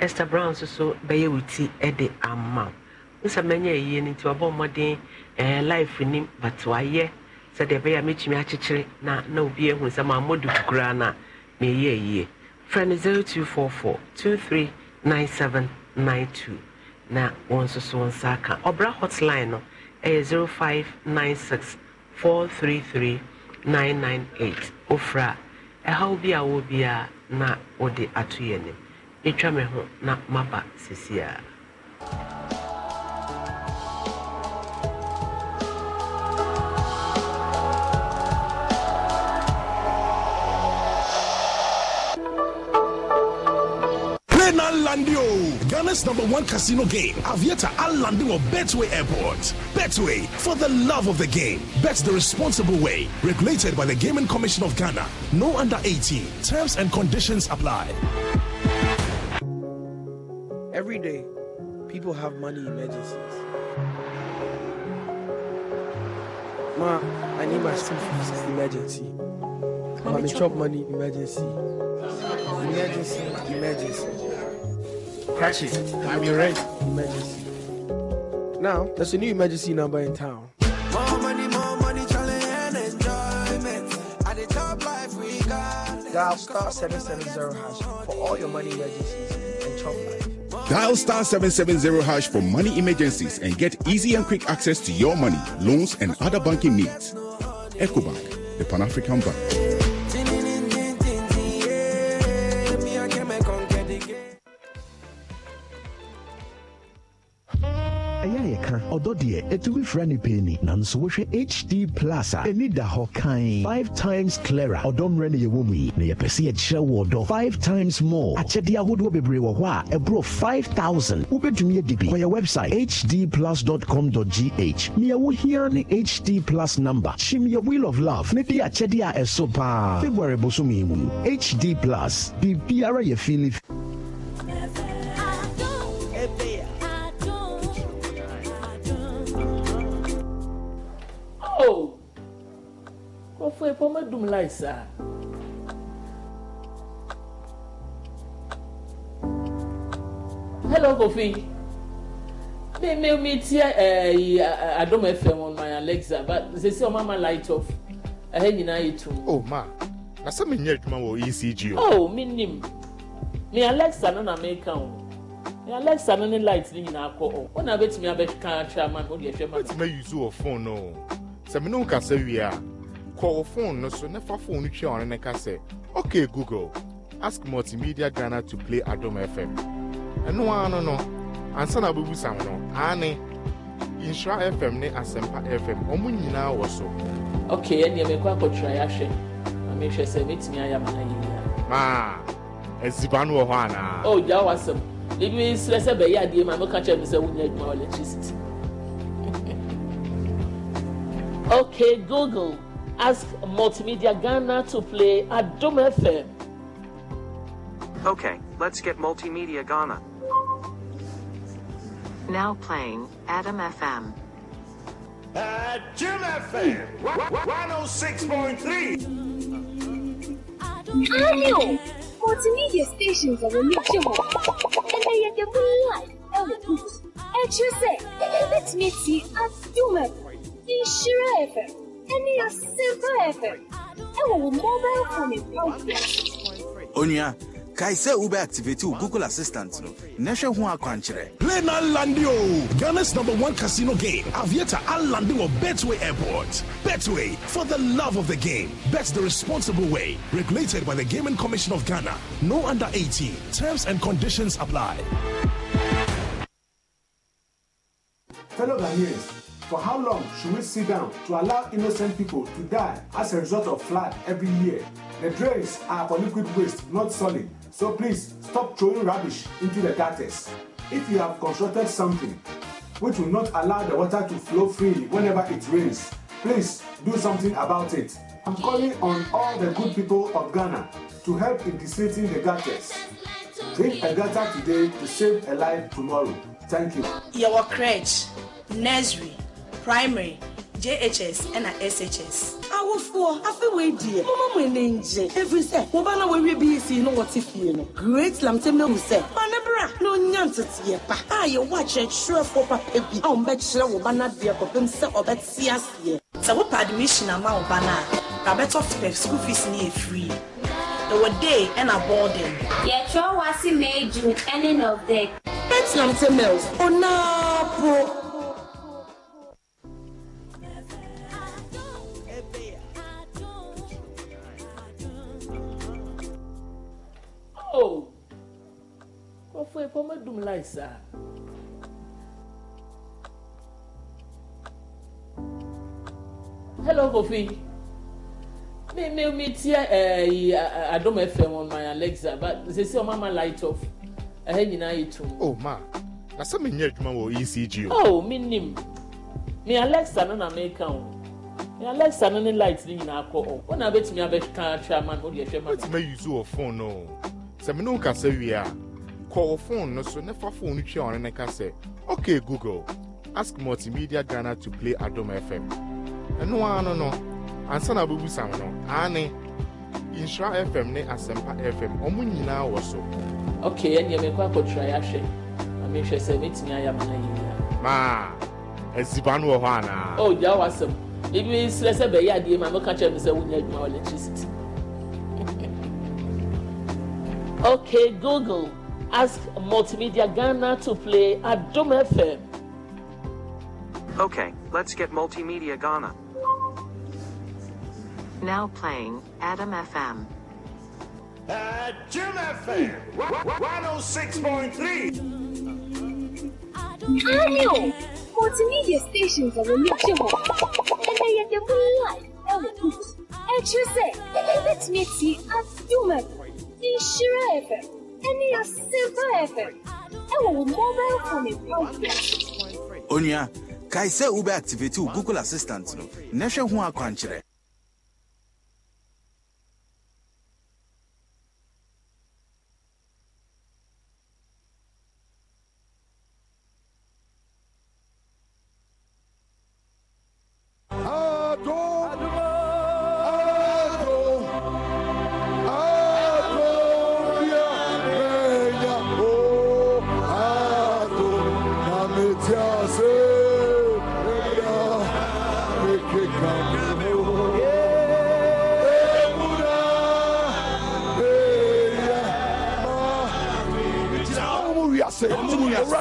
esther brown nso bɛyɛ wo ti de ama wo nsa mɛnyɛ yie no nti wabɔ mmɔden ɛɛ eh, life nim but wayɛ sɛdeɛ ɛbɛyɛ a mɛtumi akyekyere na na obi ehu nsɛm a mmɔdu kura na mɛyɛ yie frɛ no zero two four four two three nine seven nine two na wɔn nso so wɔn nsa aka ɔbra hotline no ɛyɛ zero five nine six four three three nine nine eight ofra ɛhaw bi a wɔ bi a na wɔde ato yɛn nim. ɛtwa me ho na maba sesiea Landio, Ghana's number one casino game. Avieta Alandio Betway Airport. Betway for the love of the game. Bet the responsible way. Regulated by the Gaming Commission of Ghana. No under 18. Terms and conditions apply. Every day, people have money emergencies. Ma, I need my school fees emergency. Ma, me chop money emergency. Emergency, emergency. Catch it. I'm your rent emergency. Now, there's a new emergency number in town. More money, more money, challenge and enjoyment. At the top life we got. Dial star 770 hash for all your money emergencies. Dial star 770 hash for money emergencies and get easy and quick access to your money, loans, and other banking needs. EcoBank, the Pan African Bank. ɛyɛ yɛka ɔdɔ deɛ ɛtumi fira ne pɛ ni nanso wohwɛ hd plus a ɛni da hɔ kan five times clara ɔdɔ mmerɛ ne yɛwɔ mu yi na yɛpɛ sɛ yɛkyerɛ wɔ ɔdɔ five times more akyɛdeɛ ahodoɔ bebree wɔ hɔ a ɛborɔ 5000 wobɛtumi adi bi kɔyɛ website hdplus.com.gh neɛwo hia ne hd plus number kyim yɛ wheel of love ne de akyɛdeɛ a ɛso paa february bosom mu hd plus biribiara yɛ fili nkurɔfoɔ yi pɔ madum lai saa hello kofi mi mi mi ti ɛɛ adum fm on my alexa but sisi ɔmo ama light off ɛhɛ nyinaa yɛ tum. o ma na sɛ mi nyɛ adwuma wɔ ecg o. o oh, mi nim mi alexa no na mi ka o alexa ní ní light ni nyinaa kọ ọ wọn náà bẹ tìmí abẹ kan atwa ama mi ó di ẹhwẹ ma mi. bẹẹ tí mẹ yuzu wọ fóònù náà sẹmi ní nkà sẹ wia kɔɔ phone no so na fa phone no twɛ ɔno ne ka okay google ask multimedia ghana to play adom fm ɛno ara no no ansa na abɛbusam no aane nhyira fm ne Asempa fm ɔmo nyinaa wɔ so okay ɛneɛ mekɔ akɔtwerɛ yɛahwɛ na mehwɛ sɛ mɛtumi ayɛ ma ayɛyia maa aziba no wɔ hɔ anaa o oh, gya wo asɛm ebi serɛ sɛ bɛyɛ adeɛ ma meka kyerɛ me sɛ wonya adwuma wɔ electricity okay google Ask Multimedia Ghana to play at Dome FM. Okay, let's get Multimedia Ghana. Now playing Adam FM. At Jim FM, 106.3. Daniel, multimedia stations are a relatable, and they are the real life element. And you say, let me see at Jim FM, Inshira FM and Onya, kae sɛ wobɛactivate wo google assistant no na hwɛ ho akwankyerɛ play na alande ghana's number one casino game aviator alande betway airport betway for the love of the game bet the responsible way regulated by the gaming commission of ghana no under 18 terms and conditions apply fellow ghanaians for how long should we sit down to allow innocent people to die as a result of flood every year? The drains are for liquid waste, not solid, so please stop throwing rubbish into the gutters. If you have constructed something which will not allow the water to flow freely whenever it rains, please do something about it. I'm calling on all the good people of Ghana to help in desilting the gutters. Drink a gutter today to save a life tomorrow. Thank you. Your crèche, nursery, primary jhs ɛna shs awofoɔ afei wei deɛ moma mo ani ngye ɛfiri sɛ wɔba na wɔwie bc no wɔte fie no great lamtɛm no hu sɛ mane bra na ɔnya nteteɛ pa a ah, yɛwɔ akyerɛkyerɛfoɔ papa bi a ɔmbɛkyerɛ wo ba no adeɛ kɔpem sɛ ɔbɛte aseɛ sɛ wopɛ admission ama wo ba no a rabɛtɔ fɛ school fees ne yɛ free ɛwɔ e day ɛna e boarding yɛtwerɛ wɔ ase may e june ɛne nɔvdek bɛtinamte mills ɔnaapo oh kò fún epo mẹ́dùn láìsà. hello Kofi mi mi mi ti ẹ eh, ẹ eh, adom fm on my alexa but sisi ọmọ ama light off ẹhẹ nyinaa yẹ tum. o ma na sẹ mi n yẹ adwuma wọ ecg o. o oh, mi nim mi alexa no na mi ka o mi alexa no ne light ni nyinaa kọ ọ ọ na bẹtumi abẹ kan atwa ama na o de ẹhwẹ ma. o ti ma yuzu wọ fone náà sɛ mene wo kasa wie a kɔ wo phone no so ne fa phone no twia ɔne ne ka sɛ ok google ask multimedia ghana to play adom fm ɛno ara no no ansa na wobɛbusam no aane nsura fm ne asɛmpa fm ɔmo nyinaa wɔ so ok ɛneɛ mekɔ akɔtrae ahwɛ na mehwɛ sɛ mɛtumi ayɛ ama no yɛnyina maa asiba no wɔ hɔ anaa o oh, gyaa w'asɛm ebi srɛ sɛ bɛyɛ adeɛ ma mɛka kyerɛ me sɛ wonya adwuma wɔ electricity Okay, Google, ask Multimedia Ghana to play Adam FM. Okay, let's get Multimedia Ghana. Now playing Adam FM. Adam FM 106.3. Hello! Multimedia stations are reachable. And they are the real life elements. And you say, let me see Adam FM. ìṣirò ẹ̀fẹ̀ ẹni yà silver mobile phone ìpàdé. onua google assistant no na hwɛ ho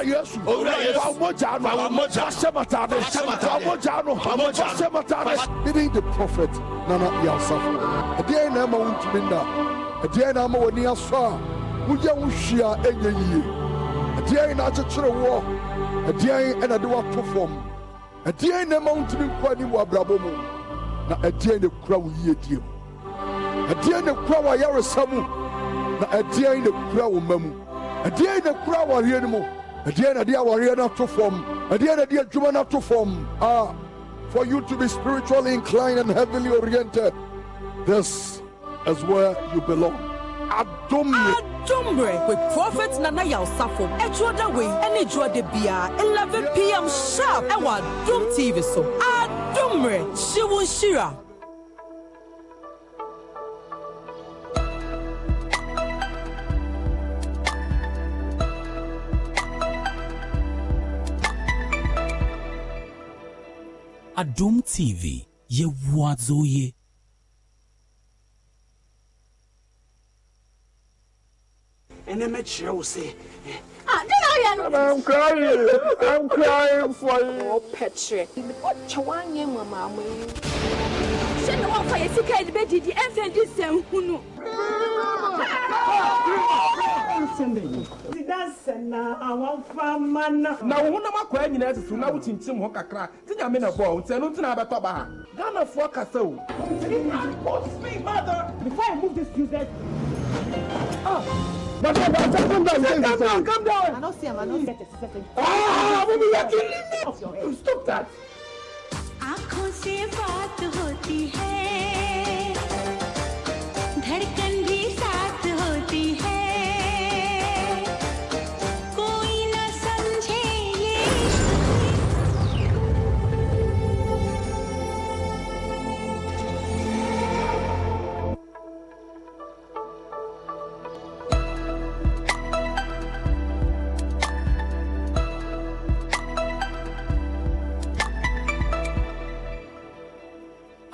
Yesu. Owura Yesu. Fawomoja no. Fawomoja. Fasematade. Fawomoja no. Fawomoja. Fasematade. Even the prophet Nana Yasafo. Ɛdeɛ na ɛma wuntumi nda. Ɛdeɛ na ama w'ani asɔ a woyɛ wo hwia ɛnyɛ yie. Ɛdeɛ na akyekyere woɔ. Ɛdeɛ ɛna de wato fam. Ɛdeɛ na ɛma wuntumi nkɔ anim wɔ abrabɔ mu. Na ɛdeɛ na ekura wo yie die mu. Ɛdeɛ na ekura wo ayaresa mu. Na ɛdeɛ na ekura wo mma mu. ɛdeɛn na kura awareɛ no mu ɛdeɛ na ɛde awareɛ no ato fam ɛdeɛ na ɛde adwuma not to form. ah for you to be spiritually inclined and heavily oriented this is where you belong adomre adomre with prophet nana yalsafo ɛtwoda any ɛne de biara 11 pm sharp Ewa adom tv so adomre hyewo nhyira Adum TV yɛwoadzoye. ɛnɛ mɛkyerɛ wo sɛ eh, ah, I'm crying. I'm crying for you. Oh, Petre. na wo honam akwaa nyinaa susu na wokyinkyim ho kakra nti nyame na bɔɔ nti ɛno nti na abɛtɔ ba ha ghanafoɔ kasa o But ah! come down, come down, come down, come down. I don't see him, I don't get it. Ah, mommy, you're killing me. Stop that. आंखों से बात होती है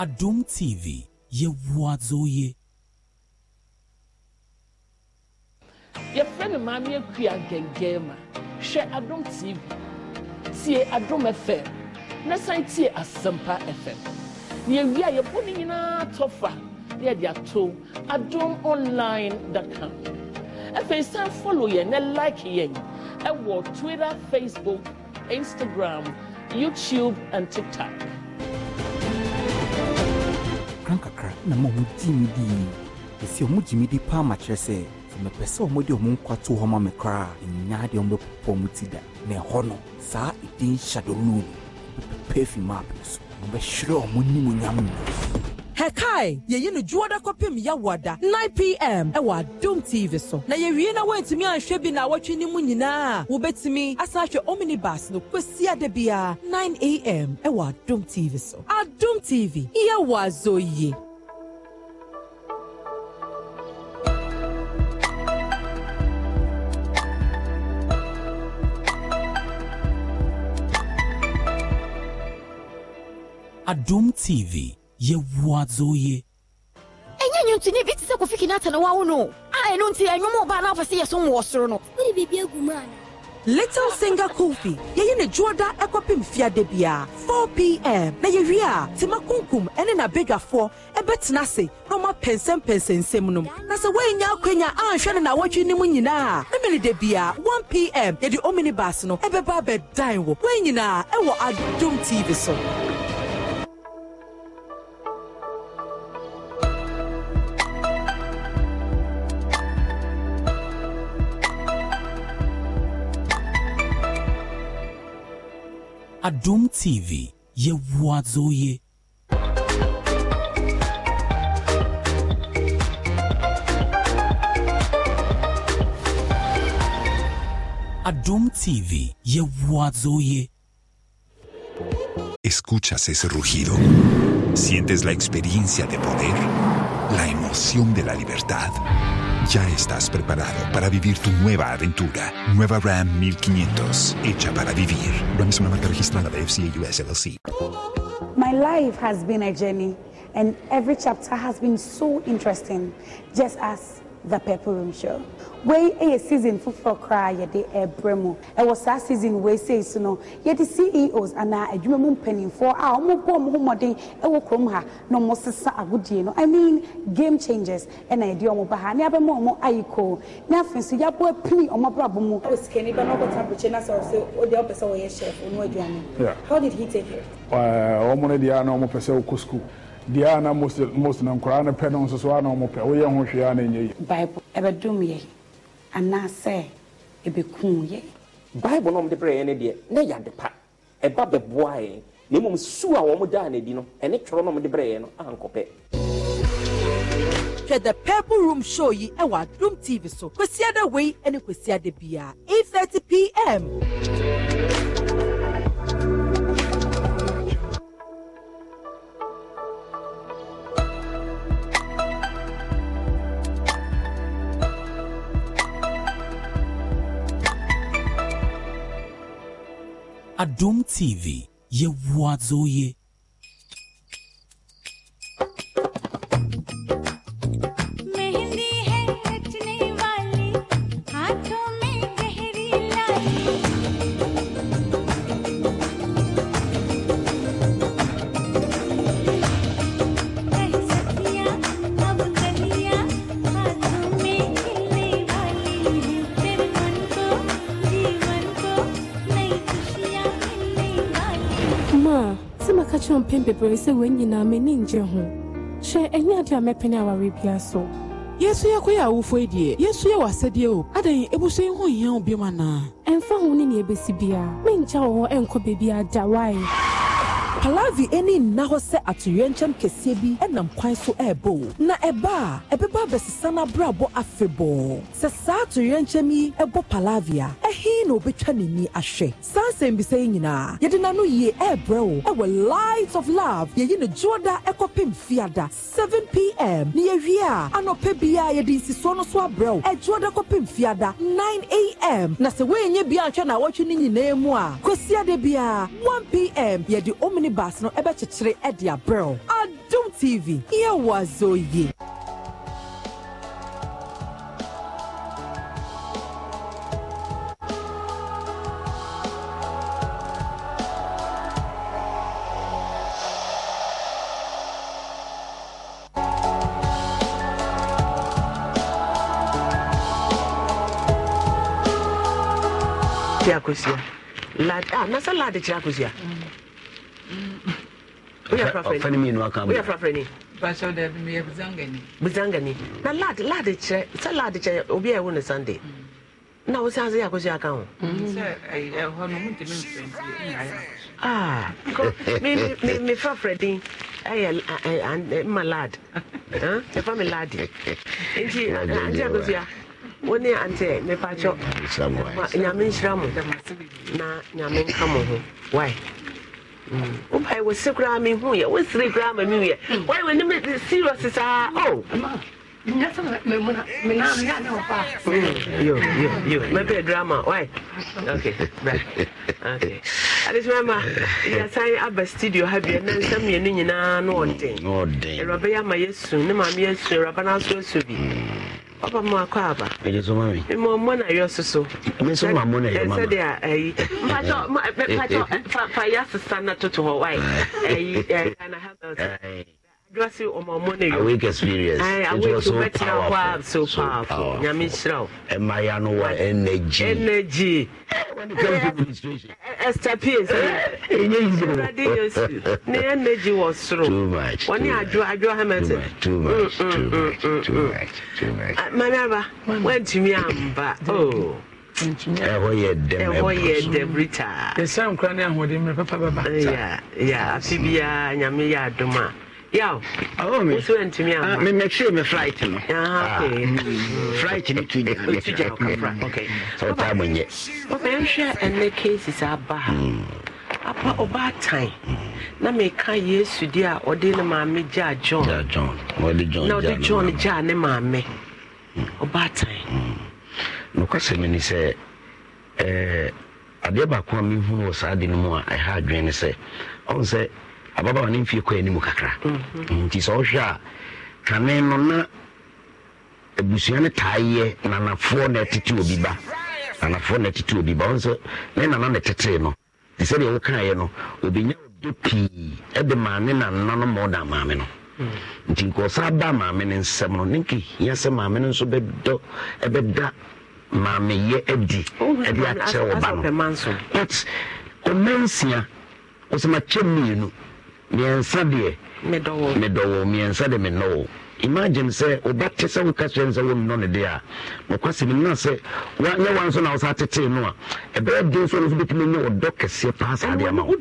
Adum TV yɛwoadzoye yɛfrɛ no maame akua gɛngɛn ma hwɛ Adum tv tie Adum fm na san tie asɛmpa fm na yɛwie a yɛbɔ no nyinaa tɔfa na yɛde ato adom online com afei san follow yɛn na like yɛn ɛwɔ twitter facebook instagram youtube and tiktok na ma ɔmo gyi mi di esi ɔmo gyi mi di paa ma kyerɛ sɛ mepɛ sɛ ɔmo de ɔmo nkwa to hɔ ma me koraa nyaa deɛ ɔmo bɛpopɔ ɔmo ti da na ɛhɔ no saa ɛdin shadow loan bɛpɛpɛ afi map no so ɔbɛhwerɛ ɔmo nimonyam no hɛkae yɛyi no dwoɔ da 9pm ɛwɔ adom tv so na yɛwie na woantumi anhwɛ bi na awɔtwe no mu nyinaa a wobɛtumi asan ahwɛ omnibus no kɔsi ada biara 9am ɛwɔ adom tv so adom tv yɛwɔ azɔ yie adom tv yɛwoa dzoye ɛnyɛ nwonto ne bi te sɛ kofi kina atane wawo no a ɛno nti ɛnwom e ɔbaa no afa sɛ yɛsom wɔ soro no wode biribi agu mu ana Little Singer Kofi, yeye ne juoda ekopim fiade bia 4 p.m. na yewie a tima kunkum ene na bedwafo ebetena se na ma pensem pensensem nom. Na se wenya akwenya anhwe ne na wotwi nim nyina. Na mele de bia 1 p.m. ye di omnibus no ebeba bedan wo. Wenyina ewo Adum TV so. Adum TV yɛwoa Adum TV Yehuazoye. Escuchas ese rugido. Sientes la experiencia de poder, la emoción de la libertad. Ya estás preparado para vivir tu nueva aventura. Nueva Ram 1500, hecha para vivir. Ram es una marca registrada de FCA US LLC. My life has been a journey, and every chapter has been so interesting, just as the purple room show wei eh, yɛ season foforɔ koraa yɛde ɛbrɛ eh, mu ɛwɔ eh, saa season wei sei so e no yɛde ceos anaa adwuma mu mpanimfoɔ a wɔbɔ wɔn ho mmɔden ɛwɔ kurom ha na wɔsesa agodie no i mean game changers ɛna yɛde wɔn ba ha ne abɛma wɔn ayiko ne afei nso yɛabɔ apini wɔn abrabɔ mu. osikani ba n'ɔkɔta abirikyi na sɛ ɔsɛ ɔde ɔpɛ sɛ ɔyɛ chef ɔno aduane. E how did he take it. wɔn no deɛ na wɔn pɛ sɛ ɔkɔ school deɛ a na most no pɛ no nso so a na ɔmopɛ woyɛ ho hwee a ɛnyɛ yi bible ɛbɛdom yɛ anaasɛ ɛbɛkum yɛ bible no ɔmde brɛ yɛ no deɛ na ɛyɛ ade pa ɛba bɛboa yɛ na mmom su a wɔn daa n'adi no ɛne twerɛ no ɔmde brɛ yɛ no ankɔpɛ hwɛ the purple room show yi ɛwɔ adum tv so kwasiada wei ɛne kwasiada biara 8:30 pm ADOM TV yɛwoa dzo yɛ mepɛn bebree sɛ wɔn nyinaa m'ani ngye ho hyɛ ɛnyɛ ade a mɛpɛn aware bia so yesu yɛ kɔyɛ awofo yi deɛ yesu yɛ w'asɛdeɛ o adan ebusua yi ho hia wo biom anaa ɛmfa ho ne nea ebesi me menkyɛ wɔ hɔ ɛnkɔ beebi ada wae palavi ani nna hɔ sɛ atoyerɛnkyɛm kɛseɛ bi nam kwan so ɛrebɔ na ɛba a ɛbɛba abɛsesa n'abrabɔ afebɔɔ sɛ saa atoyerɛnkyɛm yi ɛbɔ palavi a ɛhe na obɛtwa n'ani ahwɛ saa nsɛmbisa yi nyinaa yɛde n'ano yie ɛrebrɛ wo ɛwɔ light of love yɛyi ne dwoɔda ɛkɔpem fiada 7 pm ne yɛwie a anɔpɛ bia yɛde nsisoɔ no so abrɛ wo ɛdwoɔda kɔpem fiada 9 am na sɛ woɛnyɛ bia nhwɛ na awɔtwe no nyinaa mu a kwasiada bia 1 pm yɛde omni baas no ɛbɛkyekyere ɛde abrɛw adum tv yɛwɔ azɔ yie. kyerɛ lad ah nasa lad kyerɛ Chakusia. mm ɔfɛn mi nu aka bɔ buzangani na lad lad kyerɛ sɛ lad kyerɛ obi a sunday na wo sase yɛ akɔsi aka ho mefa frɛdin ɛyɛ ma lad ɛfa me lade nti ante akɔsia wo ne ante mepakyɔ nyame nhyira mo na nyame nka woba wɔ se koraa mehu yɛ wosere koraa ma mewuyɛ wae w'anim serious saa o mɛpɛ drama why okay okay adesima yɛsan aba studio ha bia na nsɛm mmienu nyinaa no ɔden awuraba yɛ ama yɛasu ne maame yɛasu awuraba no aso asu bi ọba mu akọ aba. èdè tó mọ na yọ soso. mi sọ ma mọ na yọ mama. ẹsẹ de ayi mpatọ mpatọ ya na toto hɔ dɔsi ɔmɔ mɔ ne yɔ awake experience Ay, eh, it was so powerful so powerful nyame nhyira o ɛma ya no wa energy energy eh, eh, esther p sɛ awurade yesu ne energy wɔ soro wɔne adwo adwo hamilton manaba woantumi amba o ɛhɔ yɛ dɛm ɛhɔ yɛ dɛm ritaa yɛsɛ nkora ne ahoɔden mmerɛ papa bɛba ya ya afe biara nyame yɛ adom a yaw mi antumi amamɛkyerɛ me flight no flight no tu tu gyanmyɛ ɔbɛnhwɛ ɛnɛ cases aba ha apa ɔbaatan na meka yesu deɛ a ɔde ne maame gyaa john na ɔde john gyaa ne maame ɔbaatan nokwasɛm ni sɛ adeɛ baako a mehu wɔ saa de no mu a ɛha eh, adwene ne sɛ ɔhu sɛ ababaawa ne mfie kɔ anim kakra mhm. nti sɛ wohwɛ a twane no na abusua no taayɛ nanafoɔ na ɛtete obi ba nanafoɔ na ɛtete obi ba ɔnsɛ ne nana na ɛtetee no te sɛdeɛ wokaeɛ no obɛnya ɔdɔ pii ɛde maame nanna no ma ɔda maame no mm. nti nkɔɔsa ba maame no nsɛm no ne nkehia sɛ maame no nso bɛdɔ ɛbɛda maameyɛ adi oh, ɛde akyerɛ wɔ ba no but ɔma nsia ɔsɛmakyɛ mmienu mmiɛnsa deɛ medɔwo mmiɛnsa de menɔwo imagine sɛ woba te sɛ woka kyerɛ sɛ wonnɔ ne deɛ a nokwasɛm nna sɛ nyɛ wa nso na wo sa tetee no a ɛbɛyɛ den so no so bɛtumi nyɛ wɔdɔ kɛseɛ paa saa deɛ ma wonome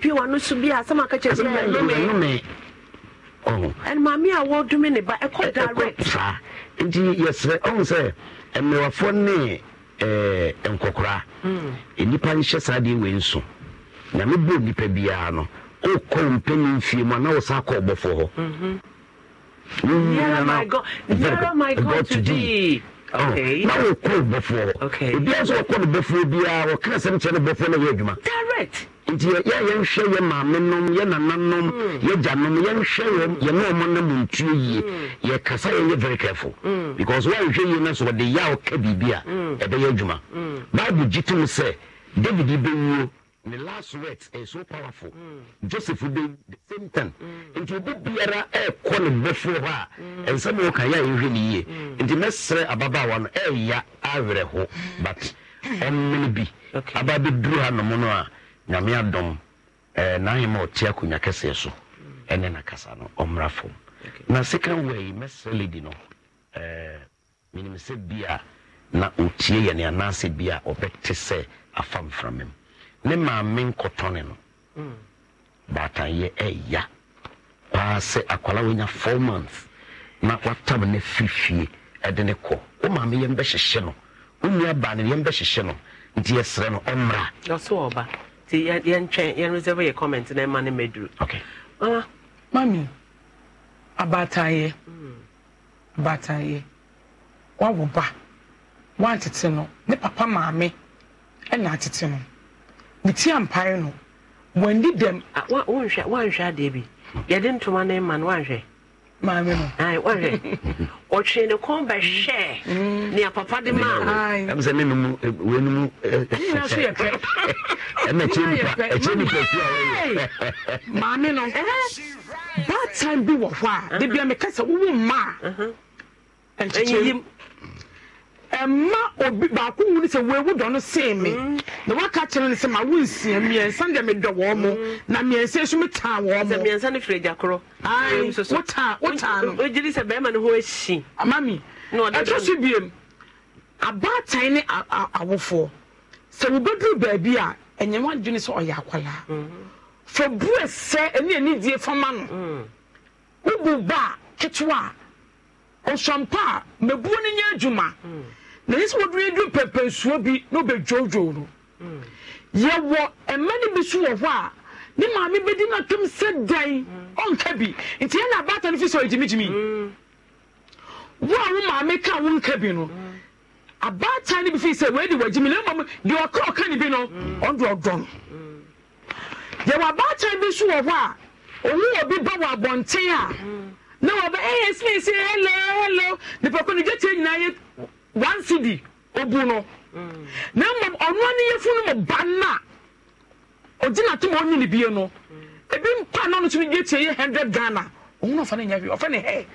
ba ɛkɔ direct saa nti yɛsrɛ ɔhu sɛ mmewafoɔ ne nkɔkora hmm. nnipa nhyɛ saa deɛ wei nso na mebɔ nnipa biara no wokɔ mpɛni mfie mu ana mhm. wo sa kɔ ɔbɔfoɔ hɔ na wokɔ bɔfoɔ hɔ obiaa sɛ wɔkɔ no bɔfoɔ biara wɔka sɛm kyerɛ no bɔfoɔ na yɛ adwuma nti yɛyɛnhwɛ yɛ maame nom yɛ nananom mm. yɛgya nom yɛnhwɛ wɔm yɛne ɔmo na mu ntuo yie mm. yɛkasa yɛyɛ very careful mm. because woanhwɛ yie no so wɔde yɛ a woka biribi a ɛbɛyɛ adwuma bible gye tom sɛ david bɛwuo ne last words ɛyɛ so powerful mm. joseph de the same time mm. nti obi biara ɛɛkɔ ne mmɔfo hɔ a mm. nsɛm a wɔka yɛ a yɛhwɛ ne yie mm. nti mɛsrɛ ababaawa no ɛɛya awerɛ ho but ɔmmene bi aba bɛduru ha nom no a nyame adɔm ɛɛ n'ahema ɔte akonnwa kɛseɛ so ɛne n'akasa no ɔmmra fam na second way mɛsrɛ lady no ɛɛ menim sɛ bi a na ɔtie yɛ ne anaasɛ bi a ɔbɛte sɛ afamframam ne maame nkɔtɔne no mm. baatayɛ ɛya paa sɛ akwala wonya four months na watam ne firifie ɛde ne kɔ wo maame yɛm bɛhyehyɛ no wo nua baa ne yɛm bɛhyehyɛ no nti yɛsrɛ no ɔmmra ɔso ɔba nti yɛntwɛn yɛnresɛve yɛ comment na ɛma ne maduru okay uh, mami abaatayɛ mm. abaatayɛ wawo ba wantete no ne papa maame ɛna atete no meti ampae no wandi dɛm wanhwɛ adeɛ bi yɛde ntoma no ma no wanhwɛ maame no wanhwɛ ɔtwee ne kɔn mm. papa de maamsɛ ne nom eh, wɛnum eh, ɛnyina so yɛ pɛ ɛna kyɛ nipa fia no bad eh? time bi wɔ hɔ a de uh-huh. bia sɛ wowo mma uh-huh. ɛma obi baako nwuni sɛ wewu dɔ no sèé mi mm. na waka kyerɛ ne sɛ ma wo nsia mmiɛnsa deɛ mi dɔ wɔn mo mm. na mmiɛnsa nso mi taa wɔn mo. sɛ mmiɛnsa ne firi gya korɔ. ayi wotaa wotaa no. o jiri sɛ bɛrima ne ho ehyi. amami ah, ɛtɔ so biem abaatan ne awofoɔ sɛ wobɛduru baabi a ɛnyɛ wɔn adwene sɛ ɔyɛ akwalaa mm-hmm. fɛ bu ɛsɛ ɛne ɛni die fama no mm. wobu ba ketewa ɔsɔmpa mɛbuo ne nyɛ adwuma. na yi sɛ wɔduru du pɛpɛ nsuo bi na ɔbɛdwoodwoo no yɛwɔ mma no bi so wɔ hɔ a ne maame bɛdi no atom sɛ dan ɔnka bi nti ɛna abaata no fi sɛ ɔgyimigyimi wo a wo maame ka wo nka bi no abaatan no bi fii sɛ wɔadi wɔagyimi na mmom deɛ ɔka ɔka ne bi no ɔde ɔdɔn yɛwɔ abaatan bi so wɔ hɔ a ɔwo obi ba wɔ abɔnten a na wɔbɛ ɛyɛ sene sɛ hello hello nipakɔ ne gyatia nyinaa yɛ one cd obu no na mmom ɔno ne yɛfu no mu ba no ɔgyina tom ɔnyi ne bie no ebi mpa no no so yɛ tie yɛ hundred ghana ɔhu no ɔfa no nyɛ hwee ɔfa ne hɛ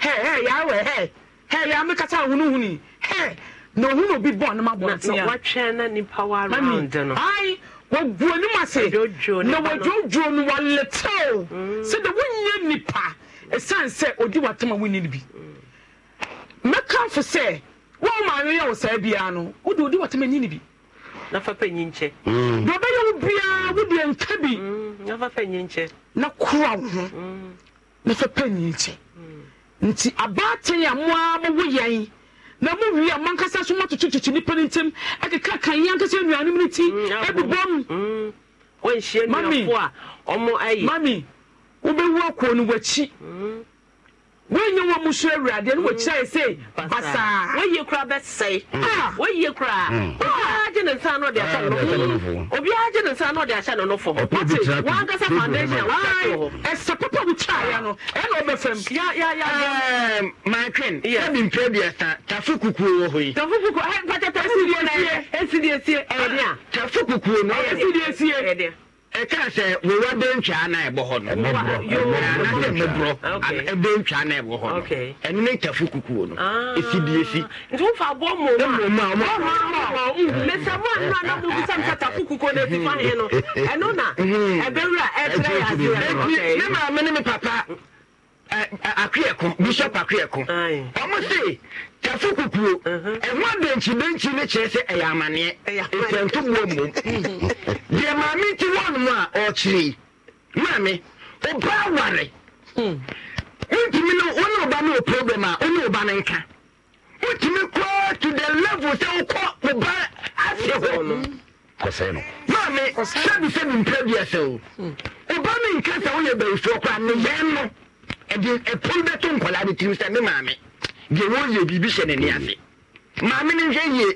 hɛ hɛ yawɛ hɛ hɛ yɛ amekasa ahonohuni hɛ na ohun na obi bɔ ne ma bɔ tia wɔtwɛn na nipa wa round no ayi wɔgu anim ase na wɔdwodwo no wɔletew mm. sɛ de wonyɛ nipa esan sɛ odi watam a wonyi ne bi. mɛka fo sɛ wɔn maa yɛ wɔ saa biara no wode wode wɔtɛm ani bi na fa pɛ nyi nkyɛ mm. deɛ ɔbɛyɛ wo biara wode nka bi mm, na fa pɛ na kora wo ho mm. na fa pɛ nyi nkyɛ nti abaatan a mo ara mo yɛn na mo wi a mo ankasa so mo atoto kyekye nipa ne ntɛm ɛkeka kan yɛn ankasa nnuane mu ne ti ɛbobɔ mu mami wobɛwu akuo no w'akyi wọnyẹ wọn mu so awurade ẹni wọ kyerɛ sɛ mm. basaa wɔyie kura bɛsɛe mm. ah, wɔyie kura mm. obiara gye ne nsa n'ɔde ahyɛ ne nofo obiara gye ne nsa n'ɔde ahyɛ ne nofo ɔte wankasa foundation a ɛsɛ papa mu kyaaya no ɛna ɔbɛ fam. ya ya ya ya. maatwin yabi mpere bi ɛsa tafe kukuo wɔ hɔ yi. tafe kukuo ɛ pata tafe kukuo na ɛsi di esie ah, ɛyɛ a. tafe kukuo na ɛsi di esie ɛyɛ den. ɛka sɛ wowa bɛntwa na ɛbɔ hɔ noanasɛ mmoborɔ ya na ɛbɔ hɔ no ɛno ne na tafo kukuo no ɛsi faneɛ na maame ne me papa eh, eh, akwɛko bishop akwɛko ɔmo se yɛfo kukuo mhm. ɛho adenkyidenkyi no kyerɛ sɛ ɛyɛ amanneɛ ɛfɛntoboa mmom deɛ maame nti wɔnom a ɔkyerɛ maame ɔba aware hmm. wontumi no wone ɔba no wɔ problem a wone ɔba no nka wotumi kɔa to the level sɛ wokɔ ɔba ase hɔ maame sɛbi sɛbi mpɛ biasɛ o ɔba hmm. no nka sɛ woyɛ bayifoɔ koraa ne yɛn no ɛde ɛpon bɛto nkɔlaa de tirim sɛ ne maame deɛ wɔyɛ biribi hyɛ ne ne ase maame no nhwɛ yie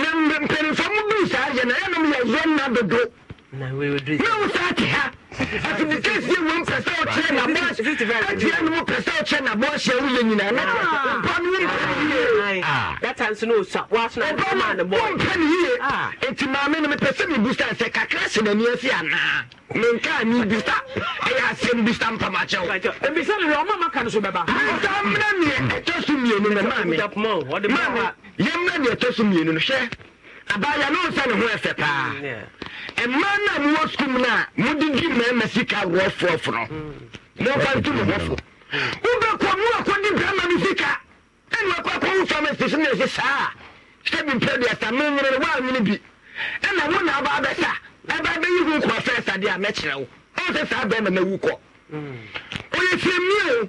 na mpanimfa mu bi saa yɛ na ɛnom yɛ zɔn na dodo yɛwo saa te ha so mmienu no hwɛ abaayewa no nsa ne ho ɛfɛ paa mm, mmaa no a mowɔ sukuu no a mode mmarima sika wɔfoɔfo no mm. momfa nto mo hɔfo mm. wobɛkɔ mu akɔde brama no sika ɛne wakɔ akɔwo pharmacy so ne ɛsi saa sɛ bi mpɛ duasa menwene no woanwene bi ɛna wo na aba abɛsa ɛba bɛyi ho nkɔɔ fɛ sadeɛ a mɛkyerɛ wo ɔwo sɛ saa bɛrima mawu kɔ ɔyɛ fiamie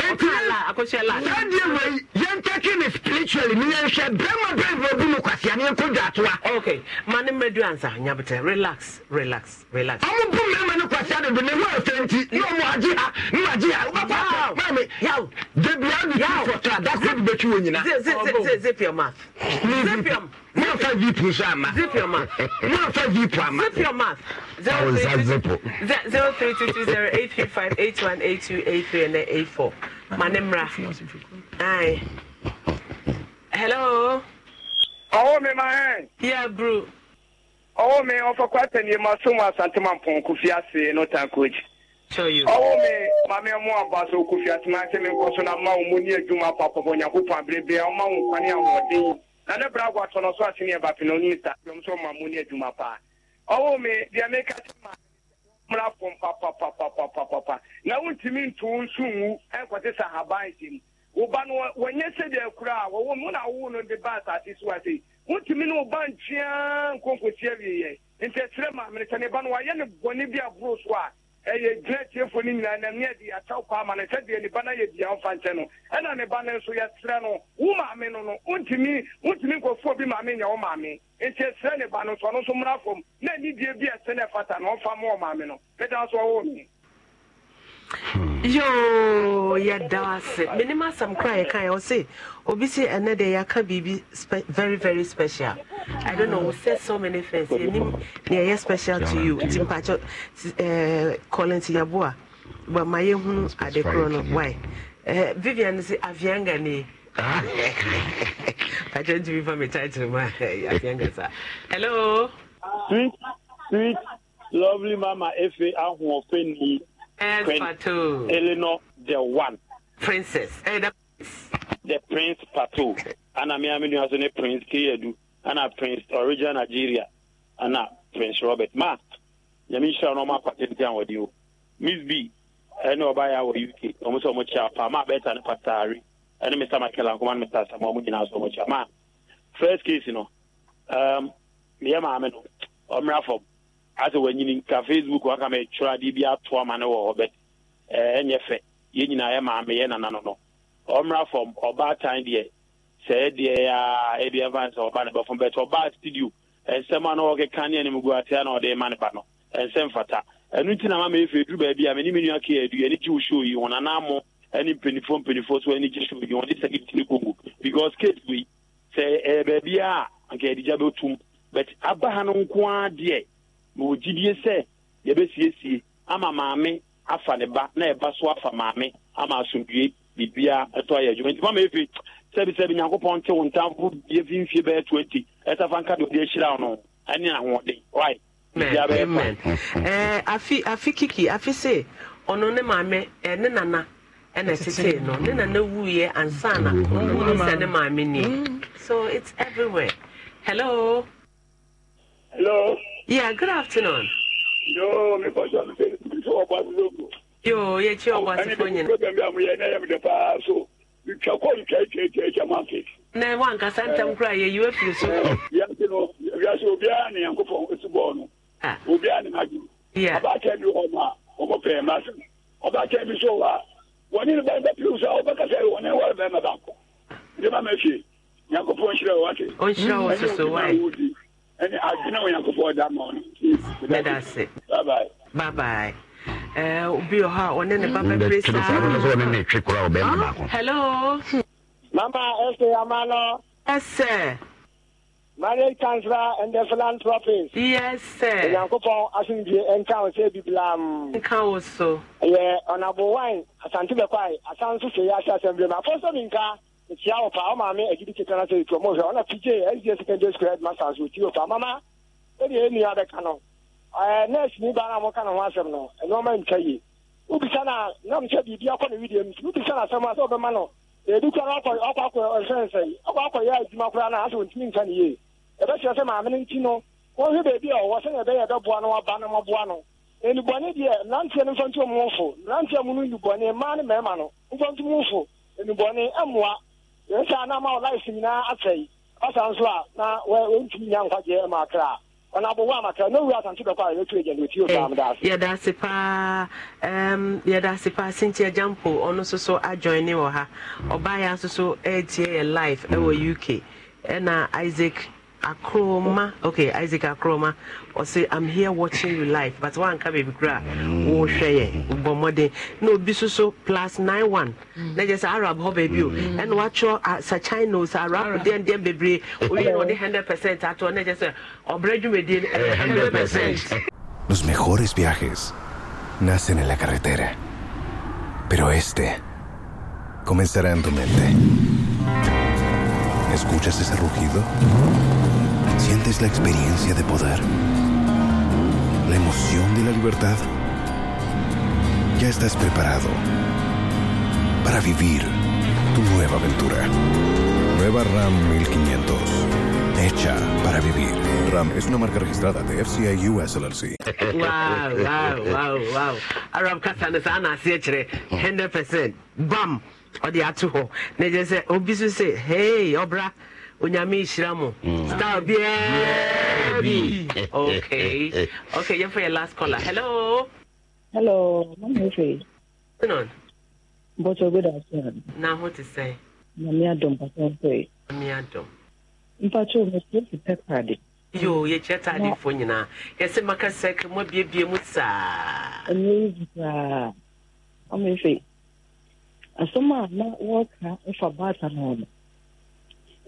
saa deɛ wei yɛntɛke ne spiritually ne yɛnhwɛ bɛma bɛbɔ bi mu kwasia yɛnkɔdwa atoa ma ne ansa nyabetɛ relax relax relax ɔmo bu mmarima ne kwasia dodo ne ho nti ne ɔmo agye ha ne magye ha wobɛfa mame da fɔtɔ a that's bɛtwi wɔ nyina zip your mouth zip your mouth mọ̀nfà zero three two two zero eight three five eight one eight two eight three and then eight four ma ne mmra ayi hello. ọwọ́ me máa hẹ́n. Yeah, bro. ọwọ́ mi ọfọkọ àtẹnìyẹ máa sún wọn asantuma pọn kò fi àṣẹ ní ọ̀tá kojì. ọwọ́ mi me, mu abaso kò fi àṣẹ máa ń sẹ́mi nkọ́ so na máa wọn mo ní ẹ̀dwuma papọ̀ nyàkó pọ̀ abiribiri àwọn máa wọn kwan ní àwọn ọ̀dín yìí na ne bra agwa tọ n'ọsọ àti ní ẹ̀bà pinnu ní ìta ọmọ sọ máa mo ní ẹ̀dwuma pa ọwọ́ mi diẹ mi ká sẹ́ mmra fam papapapapapapa na ntumi nto wo nso nwu ɛnkɔte sɛ haban hyɛ mu woba no wɔnyɛ sɛdeɛ kura a wɔwɔ mu na wowo no de ba asase so ase wontumi ne woba ntwea nkonkosi awieɛ nti ɛkyerɛ maamene sɛ ne ba no wayɛ ne bɔne bi aboro so a ɛyɛ gyina tiefo no nyinaa na neɛ de akyɛw kɔ ama no sɛdeɛ ne ba no yɛ dua mfa nkyɛ no ɛna ne ba no nso yɛserɛ no wo maame no no wontumi wontumi nkɔfoɔ bi maame nyɛ wo maame nti ɛserɛ ne ba no nso ɔno nso mmra fam na anidie bi ɛsɛ no ɛfata na ɔmfa ma wɔ maame no meda nso ɔwɔ me yoo yɛda ase menim asɛm kora yɛka yɛ ɔse obi se ɛnɛ deɛ yɛaka biribi very very special i don't know we said so many things yɛnim neɛ special to you nti mpakyɛ eh, colin tiyaboa but ma yɛhunu ade korɔ no why eh, vivian se avianga ne pakyɛ ntumi fa me title ma avianga saa hello sweet sweet lovely mama efe ahoɔfɛ nii Patou. Eleanor, the one. Princess. Hey, eh, the... the Prince Patou. Ana mi aminu asone Prince Kiyedu. Ana Prince Original Nigeria. Ana Prince Robert. Ma, yami shira no ma patente an wadi Miss B, ɛne ɔba yɛ wɔ uk ɔmo sɛ ɔmo kyia pa maa bɛta ne pataare ɛne mr michael ankoma ne mr asama ɔmo nyinaa sɛ ɔmo kyia maa first case no um, meyɛ maame no ɔmmra fam asɛ wanyini ka facebook waka ma ɛtwerɛ bi atoa ma ne wɔ hɔ bɛt ɛnyɛ eh, fɛ yɛ maame yɛ nana no no ɔmmra fam ɔbaatan deɛ sɛ ɛdeɛ a ɛfa sɛ ɔba ne bɛfam bɛt ɔbaa studio a na ɔkeka ne anim na ɔde ma ne ba no ɛnsɛm fata ɛno nti na ma meɛfɛ duru baabi a yi a anka yɛde gya bɛtum aba ha no nko ara ma ogyidie sɛ yɛbɛsiesie ama maame afa ne ba na ɛba so afa maame ama asomdue biribia ɛtɔ ayɛ adwuma nti mama efi sɛbisɛbi nyankopɔn te wo ntamfo bie fi bɛyɛ twenty ɛsafa nka de ɔde ahyira no ɛne ahoɔden right amen afi afi kiki afi se ɔno ne maame ɛɛ nana ɛna ɛsese no ne nana wuiɛ ansana ɔmu ne sɛ ne maame nie mm. so it's everywhere hello. hello. Yeah, good afternoon. Yo, me mi kọjọ mi fẹ mi fẹ ọba mi lóko. Yo, yẹ kí ọba ti fọ yẹn. Ẹni bí mo yẹ ní ẹyẹmi dẹ paa so ntwa kọ ntwa ekyir ekyir ekyir ma fi. Na wa nkasa ntam kura yẹ to firi so. Wiase no wiase obiara ni yankun fọ esi bọọl no. Obiara ni ma jù. going bi wọ́n ma ọmọ pẹ̀lú ma sẹ́n. Ọbaakẹ́ bi so wa wọ́n ní bá you. piriw sá ọba kasa be wọ́n ní wọ́n bẹ́ẹ̀ ma bá kọ́. Ndé ma ma fi yankun fọ nhyira wa ti. Ó nhyira wa soso wa yi ɛne adwene onyankopɔn da ma no mɛda se babae obi wɔ hɔ a ɔne ne ba bɛpere saahelo mama ɛsɛ ama no ɛsɛ marriage counsellor and the philanthropist. yes sir. onyankopɔn asundue nka wo sɛ bibilam. nka wo so. ɛyɛ ɔnabowwan asante bɛkwae asan so hwɛ yi ahyɛ asɛm bi mu afɔ sɛ mi nka. mekyia pa ọ maa mi agyi bi keka na sɛ ɛtuɔ mohwɛ ɔna pigye ɛgye secondary school headmasters ɔti wo paa mama ɛdeɛ ɛnua bɛka no nurse ni baa na moka ne ho asɛm no ɛnoɔma ntwa yie wobisa na nam sɛ bi akɔ ne na asɛm a sɛ wobɛma no na asɛ ɔntumi nka ne yie ɛbɛkyerɛ sɛ maame no nti no wɔhwɛ baabi a ɔwɔ sɛnea ɛbɛyɛ ɛbɛboa no no deɛ mmeranteɛ no ɔmo fo mmeranteɛ mu no mmaa ne mmarima no mu nsa na ama life na asɛe ɔsa nso a na wɔntumi nya nkwagyeɛ ma kra ɔna abɔwɔ amakra na owura asante bɛkɔ a otu agya nɛti ɔsaam daase yɛda ase paa um, yɛda ase so ha ɔbaayɛ nso uk na isaac Akroma, okay, Isaac Akroma, or say, I'm here watching you live, but one can be gra, oh, share, bomode, no, bisuso plus nine one. Let mm. us Arab hobby you, oh. mm. and watch your uh, Sachinos, Arab, then, then, be we know the hundred percent at one, just uh, or bread you made uh, eh, hundred percent. Los mejores viajes nacen en la carretera, pero este comenzará en tu mente. ¿Escuchas ese rugido? Sientes la experiencia de poder, la emoción de la libertad. Ya estás preparado para vivir tu nueva aventura. Nueva RAM 1500. Hecha para vivir. RAM es una marca registrada de FCI US LLC. Wow, wow, wow, wow. Bam! hey, Obra. onyame nhyira mo mm. star biaa bi okay okay yɛmfa yɛ last caller hello hello mamefei non bɔtɔ good afternoon na ho te sɛ mame adom pasɛmpɛi mame adom mpakyɛw mekyerɛ pepɛ pade yo yɛkyerɛ taadefoɔ nyinaa yɛsɛ maka sɛk mu abiebie mu saa ɛnyɛ yi saa mamefei asɛm a na wɔka ɛfa baata no no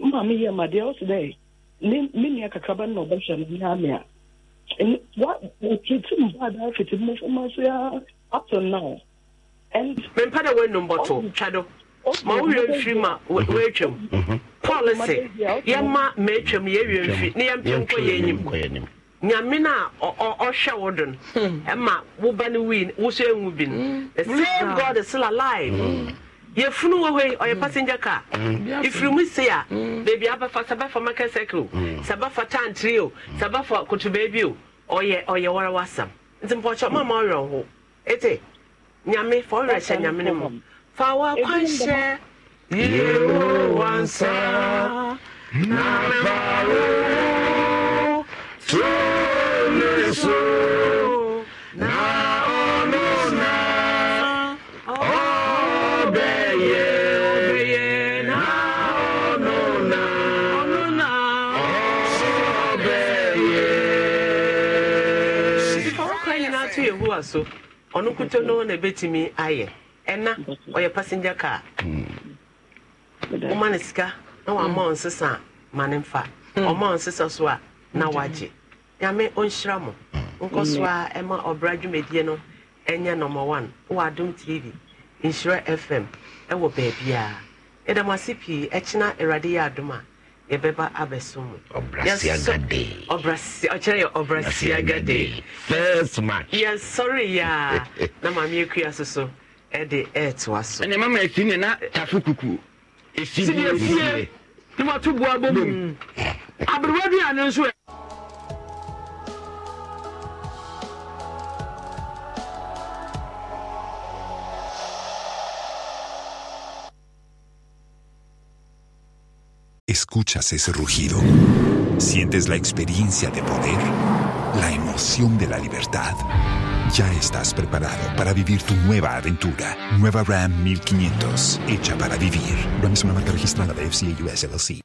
mma mi yɛ ma deɛ ɔsi dɛ ne me nua kakraba na ɔbɛhwɛ no ne ame a wa wɔtete mu ba da fiti mu fama so ya up to now and mempa dɛ wɔanum bɔto twa oh, do ma wowie mfiri mhm. mhm. ma wɔatwam policy yɛma maatwam yɛwie mfiri ne yɛmpɛ nkɔ yɛ anim nyame no a ɔhwɛ wo do no ɛma woba no wii wo so ɛnwu bi no the same hmm. god is still alive mm. yɛfunu wɔ hɔ yi ɔyɛ mm. passenger car ifiri mu se a mm. beebi abafa sabafa market circle sabafa tantiri o mm. sabafa kutubeebi o ɔyɛ ɔyɛ warawasam nti mpɔkyɛ mama ɔyɛ ho ete nyame fa ɔyɛ hyɛ nyame ne mu fa wɔ akwanhyɛ yewo wansa na fa wo tó ne so. toa so ɔno kuto no na ɛbɛtumi ayɛ ɛna ɔyɛ passenger car hmm. woma no sika na wama hmm. ɔ nsesa ma ne mfa hmm. ɔma ɔ nsesa so a na wagye nyame ɔnhyira mo nkɔ so a ɛma ɔbra dwumadie no ɛnyɛ nɔmba one wɔ adom tv nhyira fm ɛwɔ baabiaa yɛda ase pii ɛkyena awurade yɛ adom a yɛbɛba abɛsom ɔkyerɛ yɛ ɔbrasiaga day yɛnsɔre yɛ a na maame akua so so ɛde ɛɛtoa so ɛne mama na tafo boa bɔ mu aberewa bi nso e. escuchas ese rugido, sientes la experiencia de poder, la emoción de la libertad. Ya estás preparado para vivir tu nueva aventura. Nueva Ram 1500, hecha para vivir. Ram es una marca registrada de FCA US LLC.